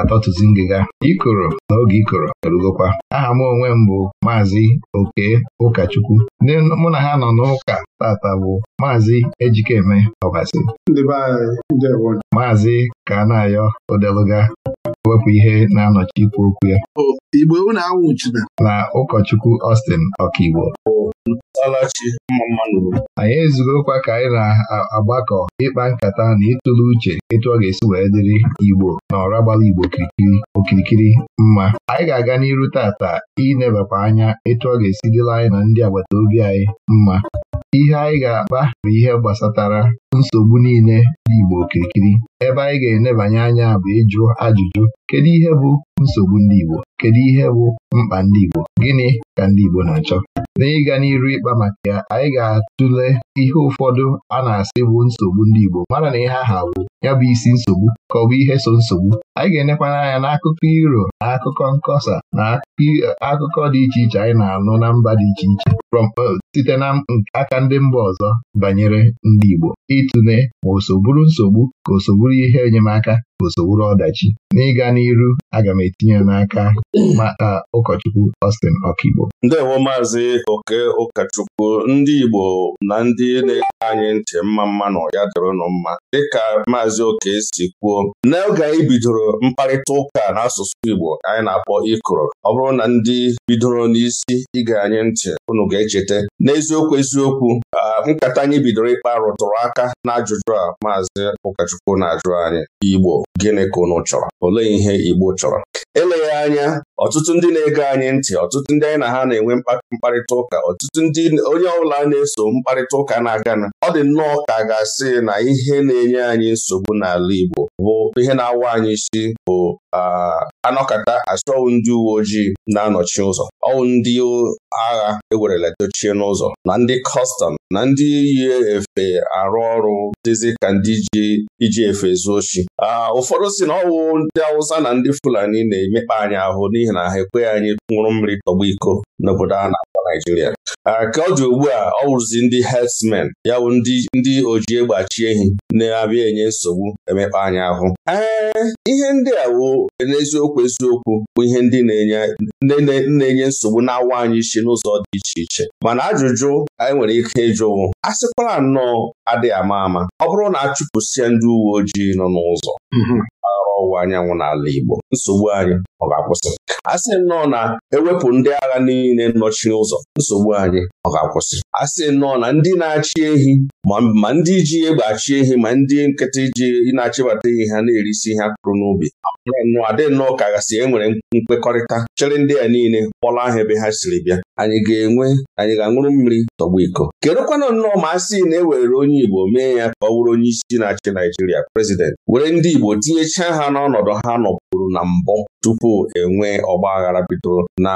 ga-atọtụzi ngịga ikoro oge ikoro erugokwa aha m onwe m bụ maazị oke ụkọchukwu ndị mụ na ha nọ n'ụka tata bụ maazị ejikeme ọbasi maazị ka na ụdị odeluga wepụ ihe na-anọchi ikwu okwu ya Igbo unu awụchina na ụkọchukwu Austin Ọkaigbo anyị ezugokwa ka anyị na-agbakọ ịkpa nkata na ịtụle uche etu ọ ga-esi wee dịrị Igbo na ọra gbara Igbo okirikiri mma anyị ga-aga n'iru tata inebakwa anya etu ọ ga-esi dịla anyị na ndị agbata obi anyị mma ihe anyị ga-akpa bụ ihe gbasatara nsogbu niile dị Igbo okirikiri ebe anyị ga-enebanye anya bụ ịjụ ajụjụ kedu ihe bụ nsogbu ndị Igbo kedu ihe bụ mkpa ndị Igbo gịnị ka ndị Igbo na-achọ na ịga n'iru ịkpa maka ya anyị ga-atụle ihe ụfọdụ a na-asị bụ nsogbu ndị Igbo mara na ihe aha bụ ya bụ isi nsogbu ka ọ bụ ihe so nsogbu anyị ga-enekwana anya n'akụkọ iro na akụkọ nkọsa na akụkọ dị iche iche anyị na-anụ na mba dị iche iche uh, site na aka ndị mba ọzọ banyere ndị Igbo ịtụle ma o so bụrụ nsogbu ka o so bụrụ ihe enyemaka bụsowuru ọdachi n'ịga n'iru aga m etinye n'aka maka ụkọchukwu Austin Ọkigbo ndewo maazị oke ụkọchukwu ndị Igbo na ndị na-ege anyị ntị mma mma na ya dịrụnụ mma dịka maazị oke si kwuo n'oge anyị bidoro mkparịta ụka n'asụsụ Igbo anyị na-akpọ ịkụrụ ọ bụrụ na ndị bidoro n'isi ịga anyị ntị unu ga-echeta n'eziokwu eziokwu nkata anyị bidoro ịkpa rụtụrụ aka n'ajụjụ a maazị ụkọchukwu na-ajụ anyị Igbo gịnị ka unu chọrọ olee ihe Igbo chọrọ eleghị anya ọtụtụ ndị na-ege anyị ntị ọtụtụ ndị anyị na ha na-enwe mkparịta ụka ọtụtụ ndị onye ọbụla na-eso mkparịta ụka na-agana ọ dị nnọọ ka ga-asị na ihe na-enye anyị nsogbu n'ala Igbo bụ ihe na-awa anyị isi bụ ah, anọkata asọwụ ndị uwe ojii na-anọchi ụzọ ọwụ ndị agha ewerela dochie n'ụzọ na ndị kọstọm na ndị yi efe arụ ọrụ dịzi ka ndị iji efe zuo a ụfọdụ si na ọwụ ndị Awụsa na ndị Fulani na-emekpa anyị ahụ n'ihi na ha ekweghị anyị nwụrụ mmiri tọgbọ iko n'obodo a na Naijiria ka ọ dị ugbu a ọ wụrụzi ndị herdsmen ya bụ ndị oji egbachi ehi na-abịa enye nsogbu emekpa anya ahụ ee ihe ndị a n'eziokwu eziokwu bụ ihe ndị na-enye nsogbu na-awa anyị isi n'ụzọ dị iche iche mana ajụjụ anyị nwere ike ịjụwụ a sịkwara nnọọ adịghị ama ama ọ bụrụ na a chụpụsịa ndị uwe ojii nọ n'ụzọ mm-hmm. ọwụwa anyanwụ n'ala Igbo nsogbu anyị ọ ga-akwụsị a sị nnọọ na ewepụ ndị agha niile nnọchi ụzọ nsogbu anyị ọ ga-akwụsị a sị nnọọ na ndị na-achị ehi ma ndị ji egbe achị ehi ma ndị nkịta ji na-achịbata ihe ha na-erisi ihe akụrụ n'ubi nnọọ adị nnọọ ka gasị enwere nkwekọrịta chere ndị a niile kpọla ahụ ebe ha siri bịa anyị ga-enwe anyị ga-aṅụrụ mmiri tọgbu iko kedụkwana nnọọ ma a sị na e were onye Igbo mee ya ka ọ bụrụ onye isi na-achị Naijiria prezident were ndị Igbo tinyechaa ha n'ọnọdụ ha nọpụrụ na mbụ tupu enwe ọgba aghara bidoro na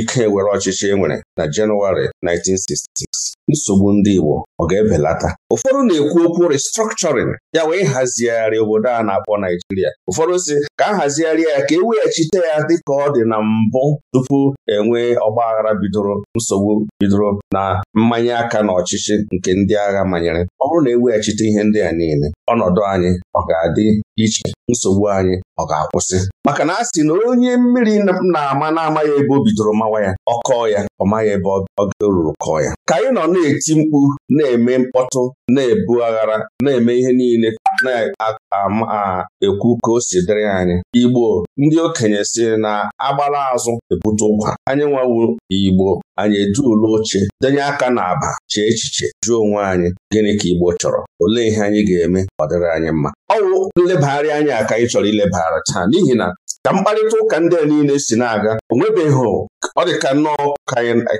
ike were ọchịchị e nwere na Jenụwarị 1960 nsogbu ndị Igbo ọ ga-ebelata ụfọdụ na-ekwu okwu restructuring ya wee hazigharị obodo a na-akpọ Naijiria ụfọdụ si ka a hazigharịa ya ka eweghachite weghachite ya dịka ọ dị na mbụ tupu enwee ọgbaghara bidoro nsogbu bidoro na mmanya aka na ọchịchị nke ndị agha manyere ọ bụrụ na eweghachite ihe ndị a niile ọnọdụ anyị ọ ga-adị iche nsogbu anyị ọ ga-akwụsị maka na a sị na onye mmiri na-ama na-ama ebe o bidoro mawa ya ọ kọọ ya ọ maghị ebe ọ ga ruru kọọ ya ka anyị nọ na-eti mkpu na-eme mkpọtụ na-ebu aghara na-eme ihe niile na-ekwu ka o si dịrị anyị Igbo ndị okenye si na agbala azụ ebute ụkwa anyị nwawu Igbo anyị ụlọ oche denye aka n'aba chee echiche jụọ onwe anyị gịnị ka Igbo chọrọ olee ihe anyị ga-eme ọ dịrị anyị mma ọwụ nlebagharị anya ka anyị chọrọ ilebagharị taa n'ihi na ka mkparịta ụka ndị a niile si na-aga o nwebeghị ọ dị ka nnọọ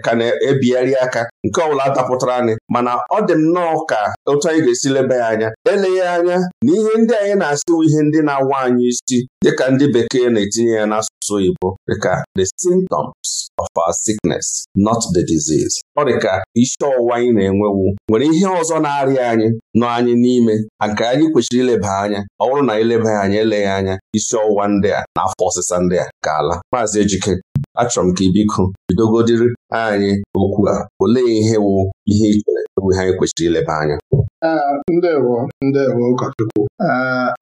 ka na-ebigharị aka nke ọbụla dapụtara anyị mana ọ dị nnọọ ka otu anyị ga-esi leba ya anya eleghị anya na ihe ndị anyị na-asịwu ihe ndị na-awa anyị isi dịka ndị bekee na-etinye ya n'asụsụ n'asụsụ Igbo dịka the symptoms of our sickness not the disease ọ dịka isi ọwụwa anyị na-enwewu nwere ihe ọzọ na-arịa anyị nọ anyị n'ime nke anyị kwesịrị ileba anya ọ bụrụ na ileba anya eleghị anya isi ọwụwa ndị a na afọ ọsịsa ndị a ka ala maazị Ejike achọrọ m ka ibiko bidogodiri anyị okwu a olee ihe wụ ihe ichere bụ ihe anyị kwesịrị ileba anya ah, ndewo ndewo ụkọchukwu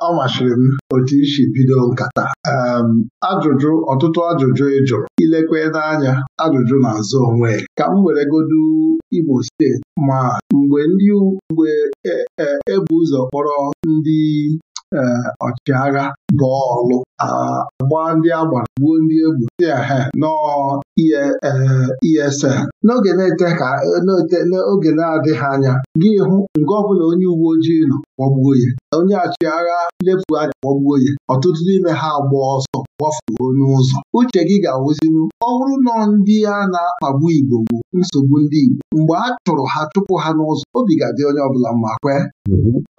ọ masịrị m otu isi bido nkata ajụjụ ọtụtụ ajụjụ ị jụrụ ilekwe n'anya ajụjụ na-azụ onwe ka m were godu Imo steeti ma mgbe ndị mgbe ebu e, e ụzọ kpọrọ ndị e, ọchịagha bọọlụ agbaa ndị a gbara gbuo ndị egwu ha n'ESN e, e n'oge n'oge na-adịghị anya gị hụ nga ọbụla onye uwe ojii nọ gbagbuo ya onye agha lefu anya gbagbuo ya ọtụtụ n'ime ha agba ọsọ gbafuo n'ụzọ uche gị ga-awụzinwu ọ bụrụ nọ ndị a na-akpagbu Igbo bụ nsogbu ndị Igbo mgbe a chụrụ ha chụpụ ha n'ụzọ obi ga-adị onye ọbụla mma kwe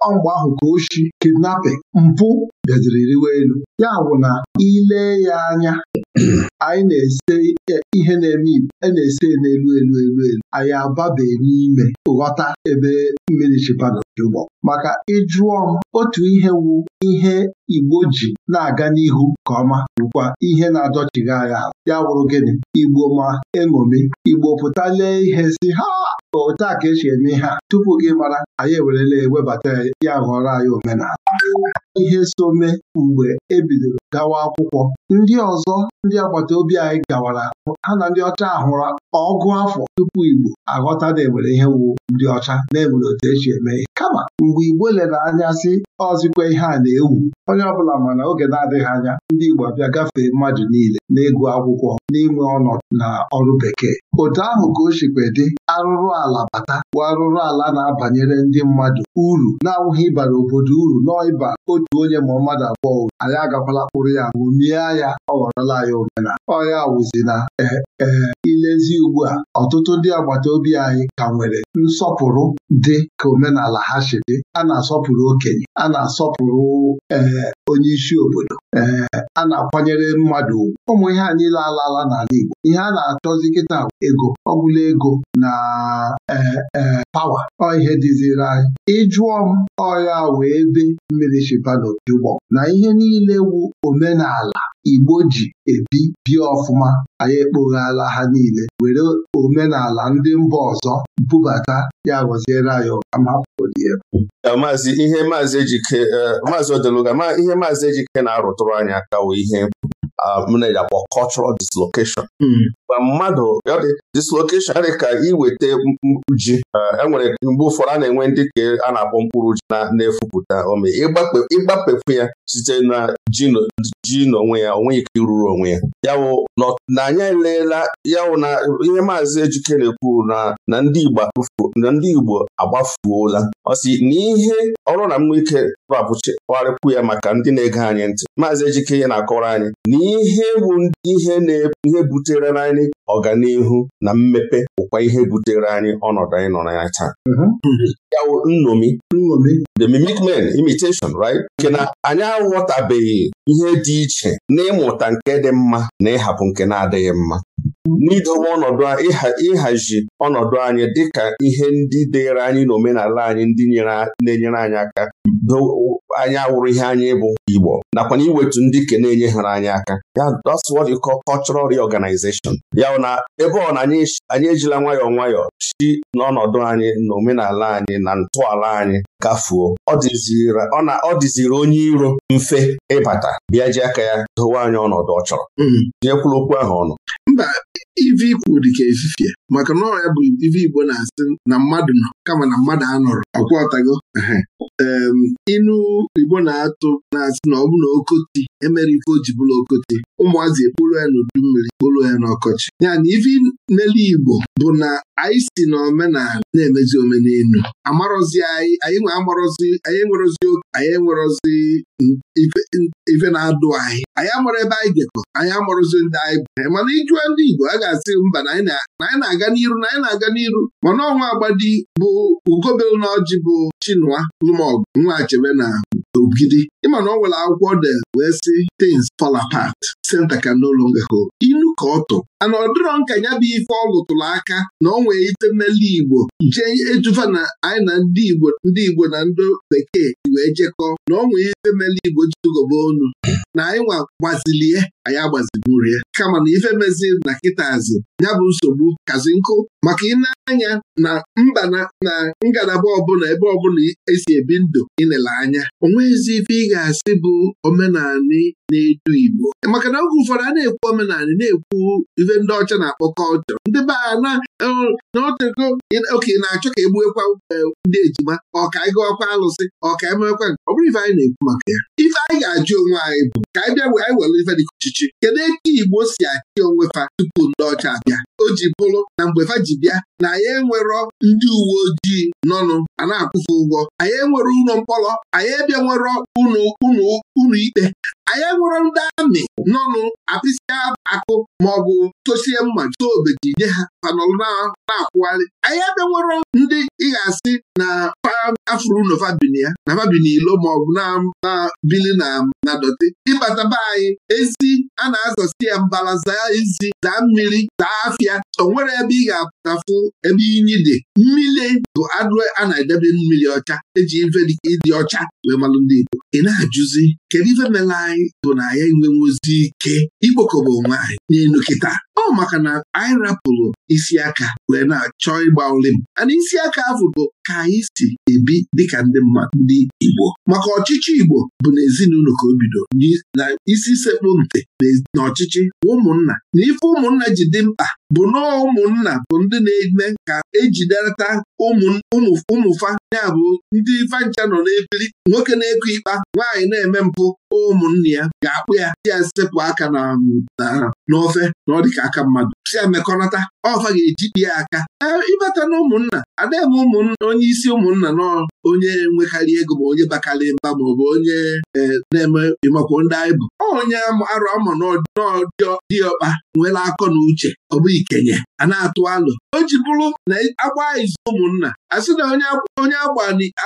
ọ mgbe ahụ ka oshi kidnapping mpụ bịaziri rịwa elu. Ya bụ na ilee ya anya anyị na-ese ihe na-eme igbo a e na-ese n'elu elu elu elu anyị ababe n'ime ghọta ebe mmiri chịpanụ dị maka ịjụọ m otu ihe wu ihe igbo ji na-aga n'ihu nke ọma bụkwa ihe na-adọchigha anyị ya wụrụ gịnị igbo ma eṅomi igbo pụta ihe si ha otu a ka esi eme ihe a tupu gị mara anyị ewerela ewebata ya ghọrọ anyị omenala ihe so mee mgbe e bidoro gawa akwụkwọ ndị ọzọ ndị agbata obi anyị gawara ha na ndị ọcha hụrụ ọgụ afọ tupu Igbo aghọta na enwere ihe wu ndị ọcha na-enwere otu echi eme ihe kama mgbe Igbo lere anya sị ọzikwa ihe a na-ewu onye ọbụla ma na oge na-adịghị anya ndị Igbo abịa gafee mmadụ niile na n'ịgụ akwụkwọ n'inwe ọnọdụ na ọrụ bekee Otu ahụ ka o sikwa dị arụrụ ala bata bụ arụrụ ala na-abanyere ndị mmadụ uru na-awụghị ịbara obodo uru nọọ ịba otu onye ma mmadụ abụọ uru anyị agakwala kpụrụ ya ṅụmie ya ọ ghọrọla ya omena. ọya wụzi na Ee, e, ilezi ugbu a ọtụtụ ndị agbata obi anyị ka nwere nsọpụrụ dị ka omenala ha si dị a na-asọpụrụ okenye a na-asọpụrụ e, onye isi obodo ee, a na-akwanyere mmadụ ugwu ụmụ ihe a niile alaala n'ala Igbo ihe a na-achọzi kịta ego ọgwụla ego na e, e, pawa ọ ihe dịziri anyị ịjụọ m ọya wee ebe mmiri shiba n'ojugbọ na ihe niile wu omenala Igbo ji ebi bie ọfụma anyị ekpoghala ha niile were omenala ndị mba ọzọ bubata ya gọziere anyị amapụdie maazị ihe maazị ejike e, maazị ihe maazị ejike na-arụtụrụ anyị aka wee ihe m na-akpọ cultural dislocation hmm. ma mmadụ dislocation adị ka iweta mkpụrụ ji ah, enwere mgbe ụfọdụ a na-enwe ndị ka a na-akpọ mkpụrụ ji na-efupụta ome ịgbapekwu ya site na ji n'onwe ya onwe ike iruru onwe ya na anyị eleela yawụ na ihe maazị Ejike na-ekwu na ndị Igbo agbafuola ọ sị ọrụ na mmụ ike rapụchikwarịkwu ya maka ndị na-ege anyị ntị maazị Ejike ya na-akọrọ anyị n'ihe ihe bụ ihe butere na anyị naanị ọganihu na mmepe bụkwa ihe butere anyị ọnọdụ anyị nọ na ya taa mhm. hmm. ya wụ nṅomi the mimic man imitation right nke na anyị aghọtabeghị ihe dị iche n'ịmụta nke dị mma na ịhapụ nke na-adịghị mma n'idowe ọnọdụ ịhazi ọnọdụ anyị dịka ihe ndị dịrị anyị n'omenala anyị ndị na-enyere anyị aka anyị awụrụ ihe anyị bụ Igbo nakwa na iwetu ndị ke na-enye hara anyị aka ya that's what you call cultural ya na ebe ọ na anyị ejila nwayọọ nwayọọ si n'ọnọdụ anyị na omenala anyị na ntọala anyị gafuo ọ dịziri onye iro mfe ịbata bịa ji aka ya dowe anyị ọnọdụ ọ chọrọ mm. tinyekwula okwu ahụ ọnụ ive ikwu dị ka efifie maka na ọrịa bụ ive Igbo na-asị na mmadụ nọ kama na mmadụ anọrọ akwọtago inu Igbo na-atụ na-asị na ọ bụ na okoti emere ife o ji bụrụ okoti ụmụazị ekporo ya n'udu mmiri kporo ya n'ọkọchị ya na ivi n'elu Igbo bụ na anyị si na omenala na-emezi omenelu amarọzi anyị anyị nwe amarọzi anyị nwerozi oke anyị nwerozi ife na-adụ anyị anyị amụrụ ebe anyị jekọ anyị amụrụzi ndị anyị bụ mana ịjụọ ndị Igbo a ga-asị mba na anyị na-aga n'iru na anyị na-aga n'iru mana ọnwa agbadi bụ ugobelu na ọjị bụ Chinua lụmọgụ nwa Achebe na ogidi ịma na ọ nwere akwụkwọ de wee sị tins fall apart center can no longer hold inu ka ọ tụ ana ọ dịrọ nka ya bụ ife ọ lụtụrụ aka na ọ nwee ite mmeli Igbo jee ejuva na anyị na ndị Igbo ndị Igbo na ndị bekee wee jekọọ na ọ nwee ite mmele Igbo jigoba onu na anyị nwa gbazilie anyị ya. kama na ife mezi na kịtazi ya bụ nsogbu kazi nkụ maka ị na-anya na mba na ngalaba ọbụla ebe ọbụla esi ebi ndụ ịnele anya onweghịzi ife ị ga-asị bụ omenanị na-edu Igbo maka na oge ụfọdụ a na-ekwu omenanị na-ekwu ife ndị ọcha na-akpọ kọlchọ ndị be na e, naotego oke na-achọ ka egbuekwa e, ndị ejima ọka alụsị ọka emewekwa nke ọ bụrụ ife anyị na-ekwu maka ya ife anyị ga-ajụ onwe anyị bụ ka anyị bịa anyị were ife dịka ọchịchị kedu eke Igbo si achị onwe fa tupu ndị ọcha abịa o ji bụrụ na mgbe fa ji bịa na anyị enwero ndị uwe ojii nọnụ a na-akwụfe ụgwọ anyị enwere ụlọ mkpọrọ anyị abịa nwere ụlọ ikpe anyị nwere ndị amị nọnụ apịsịa akụ maọbụ tosie mma jụta obeji nye ha panọlụ na-akwụgharị anyị ebe nwere ndị ị ga-asị na afrunofabin ya na fabin ilo maọbụ na bili na dọtị ịbataba anyị ezi a na-azasi ya mbala zaa ezi mmiri daa afịa o nwere ebe ị ga-apụtafụ ebe inyi dị mmiri bụ adụ a na-edebe mmiri ọcha eji ife dị ọcha wee malụ ndị Igbo ị na-ajụzi kedu ife mela anyị bụ na anyị enwenwuzi ike ikpokọba onwe anyị n'elu kịta ọ maka na anyị rapụrụ isi aka wee na-achọ ịgba olim ana isi aka ahụ bụ ka anyị si ebi dịka ndị mmadụ ndị Igbo maka ọchịchị Igbo bụ ezinụlọ ka o bido na isi sekpụ ntị na ọchịchị ụmụnna na ife ụmụnna ji dị mkpa bụ na ụmụnna bụ ndị na-eme ka ejiderịta ụmụfa ya bụ ndị fancha nọ n'ebili nwoke na-ekwe ikpa nwaanyị na-eme mpụ ụmụnne ya ga-akpụ ya si ya sepụ aka na um, n'ofe na ọ dịka aka mmadụ si ya mekọnata ọfa ga-ejide ya aka ịbata na ụmụnna adaghị ụmụnna onye isi ụmụnna nọ onye nwekarị ego ma onye bakarị mba ma ọ bụ onye e, na-eme ịmakwo ndị anyị bụ onye arụ ama ọkpa nwere akọ na uche ọ bụ ikenye a na-atụ alụ o ji bụrụ na agba izu ụmụnna a sị na onye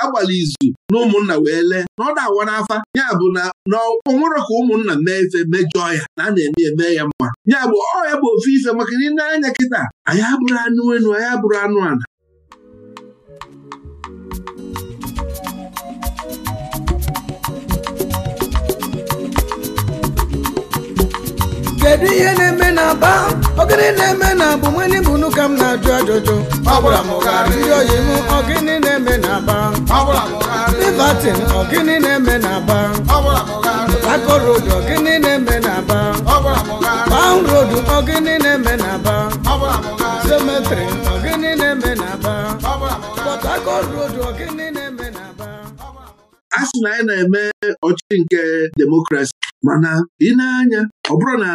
agbala izu na ụmụnna wee lee na ọ na-awa n'afa ya bụ na nwere ka ụmụnna mee ife mejọọ ya na a na-eme eme ya mma ya bụ ọ ya bụ ofu ife maka na ị na-anya kịta anyị abụrụ anụ enu anyị abụrụ anụ ala kedu ihe na-eme na aba Ogene na-eme na bụ bụ unu ka m na-ajụ ajụjụ ndị oyiwu ogịnị na-eme na aba livatin ogịnị na-eme na aba akorodu ogịnị na-eme na aba paun rodu ogịnị na-eme na aba cemetrị ogịnị na-eme na aba pọt akọt rodu ogịnị na-eme na aba a sị na anyị na-eme ọchị nke demokrasi mana ị na-anya ọ bụrụ na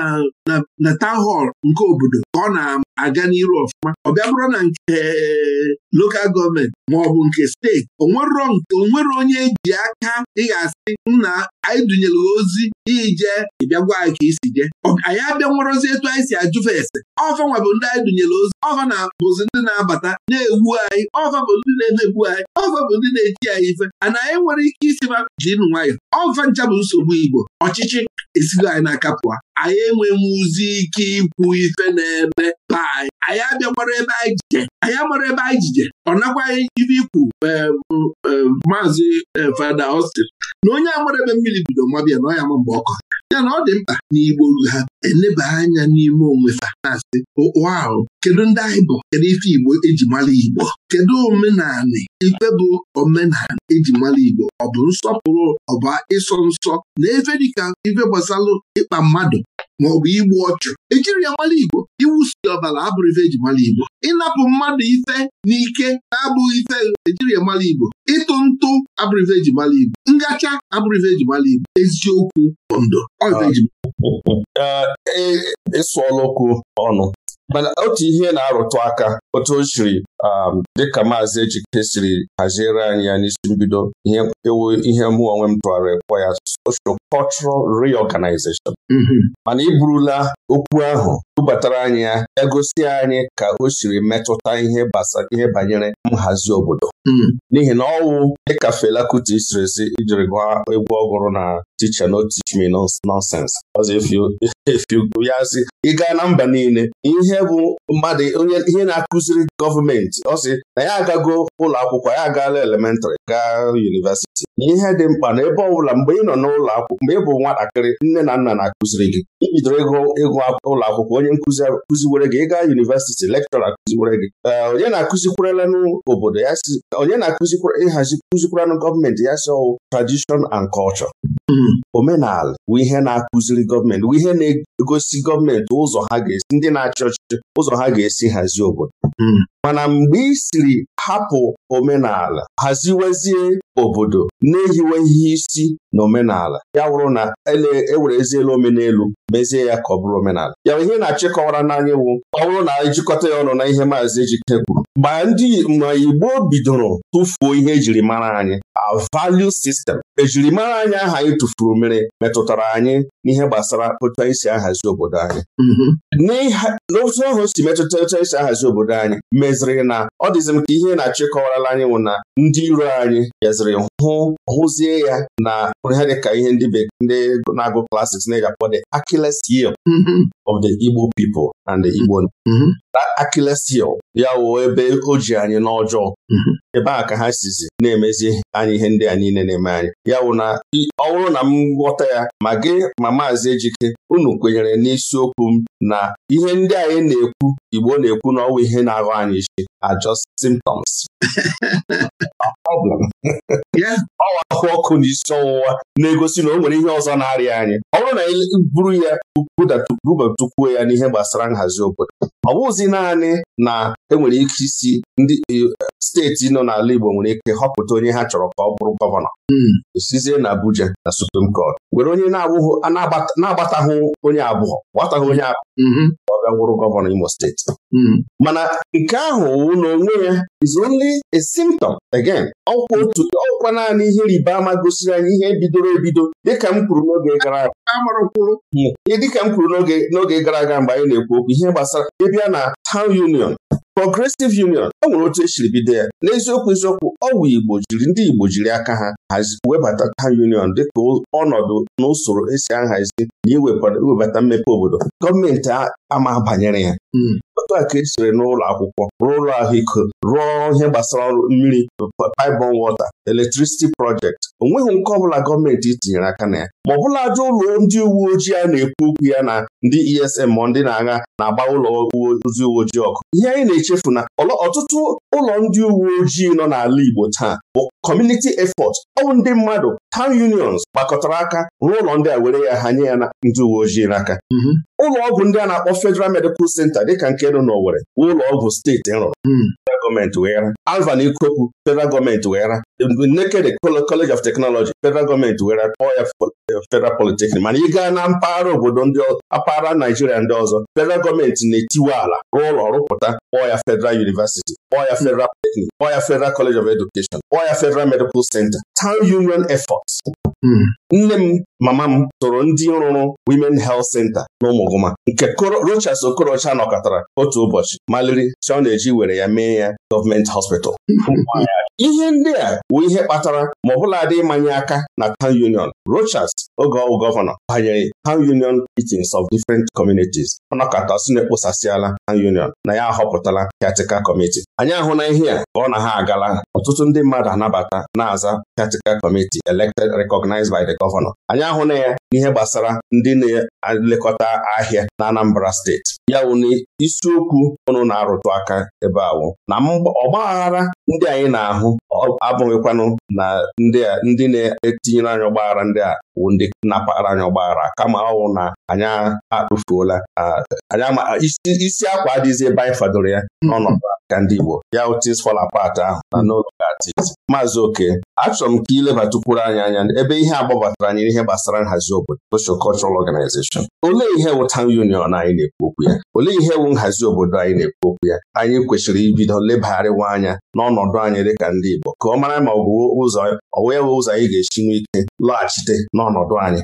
na hall nke obodo ka ọ na-aga n'iru ọfụma ọ bịa bụrụ na nke eh, lokal gọọmenti ma ọ bụ nke steeti onwere onye eji aka ị ga-asị nna anyị dunyere ozi ije ịbịa gwa anyị ka isi je anyị abịa nwerozi etu anyị si ajụfe ese ọfa nwa ndị anyị dunyere ozi ọfa na bụzi ndị na-abata na egbu anyị ọfa bụ ndị na-emegbu anyị ọfa bụ ndị na eji anyị ife ana anyị nwere ike isi ma nwayọ Igbo ncha bụ nsogbu Igbo ọchịchị esigo anyị n'aka pụọ anyị enweghị ụzi ike ikwu ife na-eme paị. anyị anyị ebe anyị jije anyị amara ebe anyị jije ọ nakwaghị ibe ikwu maazị eh, Fada Austin na onye amara ebe mmiri bido mabịa na ọ ya ma mgbe ọkọ ya na ọ dị mkpa na Igbo ha eleba anya n'ime onwe fa na-asị ahụ kedu ndị anyị bụ kedu ife Igbo eji mara Igbo kedu omenanị ife bụ omenala eji mara Igbo ọ bụ nsọpụrụ ọ bụ ịsọ nsọ na efe dịka ife gbasalụ ịkpa mmadụ bụ igbu ọchụ ejiri ya mara Igbo iwusi ọbara abụrụ ife eji mara Igbo ịnapụ mmadụ ife n'ike na-abụghị ife ejiri ya mara Igbo ịtụ ntụ abụrụ ife eji mara Igbo ngacha abụrụ ife eji mara Igbo eziokwu ndụ ọ ife eji ịsụ ọlụkụ ọnụ mana otu ihe na-arụtụ aka otu o siri um, dịka maazị Ejike siri haziere anyị ya n'isi mbido ihe ewu ihe mụ onwe m tụgharị ekwe ya social cultural reorganization mm-hmm. mana iburula burula okwu ahụ bubatara anyị ya egosi anyị ka o siri metụta ihe ihe banyere nhazi obodo mm-hmm. n'ihi na ọwụ dịka Fela Kuti siri si ijiri gwa egwu ọhụrụ na ticha no teach me nonsense ya ị gaa na mba niile ihe bụ mmadụ onye ihe na akụ. kụziri gọọmenti ọ sị na ya agago ụlọ akwụkwọ ya agaala elementarị gaa yunivesiti ihe dị mkpa na ebe ọbụla mgbe ị nọ n'ụlọ akwụkwọ mgbe ị bụ nwatakịrị nne na nna na-akụziri gị ibidoro ịgụ ịgụ ụlọ akwụkwọ onye nkụzi kụziwere gị ịga yunivesiti lekchọra kụziwere gị eh, onye na-akụzikwarala obodo ya si onye na-akụzikwara ịhazi kụzikwaranụ gọọmenti ya si ọwụ oh, tradishọn and culture hmm. omenala bụ ihe na-akụziri gọọmenti bụ ihe na-egosi gọọmenti ụzọ ha ga-esi ndị na-achị ọchịchị ụzọ ha ga-esi hazie obodo Hmm. mana mgbe ị siri hapụ omenala haziwezie obodo na-ehiwe isi na omenala ya wụrụ na ewere e eziela omenelu mezie ya ka ọ bụrụ omenala ya ihe na-achịkọwara n'anya iwu ọ bụrụ na jikọta ya ọnụ na ihe maazị Ejike kwuru mgbe ndị ma Igbo bidoro tụfuo ihe ejiri mara anyị a value system ejirimara anyị aha anyị tụfuru mere metụtara anyị n'ihe gbasara otu anyị si ahazi obodo anyị mhm. n'otu ahụ si metụta otu anyị si ahazi obodo anyị meziri na ọ dịzim m ka ihe na-achịkọwarala anyị nwụ na ndị iro anyị bịaziri hụ hụzie ya na hụrụ ihe dịka ihe ndị ndị na-agụ klasiks na-eji the Achilles heel mm-hmm. of the Igbo people and the Igbo mm-hmm. that Achilles heel ya wuo ebe o ji anyị n'ọjọọ mm-hmm. ebe a ka ha sizi na-emezi anyị ihe ndị a niile na-eme anyị ya wụ na ọ bụrụ na m ghọta ya ma gị ma maazị Ejike unu kwenyere n'isiokwu m na ihe ndị anyị na-ekwu Igbo na-ekwu na ọwa ihe na-aghọ anyị isi are just symptoms ọwa ahụ ọkụ na isi ọwụwa akwa na-egosi na o nwere ihe ọzọ na-arịa anyị ọ bụrụ na anyị buru ya bubatukwuo ya n'ihe gbasara nhazi obodo ọ bụghịzi naanị na enwere ike isi ndị e, steeti nọ n'ala Igbo nwere ike họpụta onye ha chọrọ ka ọ bụrụ gọvanọ osizie hmm. na Abuja na Supreme Court were onye na-agbataghị onye abụọ gbataghị onye abụọ mm-hmm. ọ bịa wụrụ gọvanọ Imo steeti hmm. mana nke ahụ na onwe ya is only a symptom again ọkwa otu bụrụkwa naanị ihe riba ama gosiri anyị ihe bidoro ebido dịka m kwuru n'oge gara aga dịka m kwuru n'oge gara aga mgbe anyị na-ekwu okwu ihe gbasara ịbịa na Town Union Progressive Union ọ nwere otu esiri bido ya n'eziokwu eziokwu ọwụ Igbo jiri ndị Igbo jiri aka ha hazi webata Town Union dịka ọnọdụ na usoro esi ahazi na iwebata mmepe obodo gọọmenti ama banyere ya hmm. otu a ka e n'ụlọ akwụkwọ rụọ ụlọ ahụike rụọ ihe gbasara ọrụ mmiri pipeline water electricity project o nweghị nke ọbụla gọọmenti tinyere aka na ya ma ọ bụla ajọ ụlọ ndị uwe ojii a na-ekwu okwu ya na ndị ESM ma ndị na-agha na-agba ụlọ ndị uwe ojii ọkụ ihe anyị na-echefu na ọtụtụ ụlọ ndị uwe ojii nọ n'ala Igbo taa bụ kọmuniti efọt ọwụ ndị mmadụ town unions gbakọtara aka rụọ ụlọ ndị a were ya ha nye ya ndị uwe ojii n'aka mm-hmm. ụlọ ọgwụ ndị a na-akpọ Federal Medical Center dịka nke nọ n'Owere ụlọ ọgwụ steeti rụrụ hmm. federal gọọmenti Alvan Ikoku federal gọọmenti weghara naked College of Technology federal gọọmenti weghara kpọọ ya federal polytechnic mana ị gaa na mpaghara obodo ndị mpaghara Naijiria ndị ọzọ federal gọọmenti na-etiwe ala rụọ ụlọ rụpụta kpọọ ya federal University kpọọ ya hmm. federal polytechnic kpọọ ya federal College of Education kpọọ federal Medical Center town union Hmm. nne m mama m tụrụ ndị rụrụ Women Health Center n'Ụmụgụma nke Rochas Okorocha nọkọtara otu ụbọchị maliri si ọ na-eji were ya mee ya gọọmenti hospital ihe ndị a bụ ihe kpatara ma ọ dị ịmanye aka na town union Rochas oge ọgwụ gọvanọ banyere town union meetings of different communities ọnọkọta si na ekposasịala town union na ya ahọpụtala piatical committee anyị ahụ na ihe a ka ọ na ha agala ọtụtụ ndị mmadụ anabata na-aza piatical committee elected recognized by the governor anyị ahụ na ya n'ihe gbasara ndị na-elekọta ahịa na Anambra steeti ya wụ na isiokwu ọnụ na-arụtụ aka ebe awụ na ọgbaghara ndị anyị na-ahụ abụghịkwanụ na ndị na-etinyere anyị ọgbaghara ndị a wụ ndị napara anyị ọgbaghara kama ọwụ na anyị akpụfuola isi akwa adịzi ebe anyị fadoro ya n'ọnọdụ ka ndị Igbo ya things fall apart ahụ na n'ụlọ gatis maazị oke achọrọ m ka ilebatakwuru anyị anya ebe ihe a gbabatara anyị n'ihe gbasara nhazi obodo social cultural organization olee ihe wụ town union anyị na-ekwu okwu ya olee ihe wụ nhazi obodo anyị na-ekwu okwu ya anyị kwesịrị ibido lebagharịwa anya n'ọnọdụ anyị dịka ndị Igbo ka ọ mara ma ọ bụ ụzọ ọ wee ụzọ anyị ga-esi nwee ike lọghachite n'ọnọdụ anyị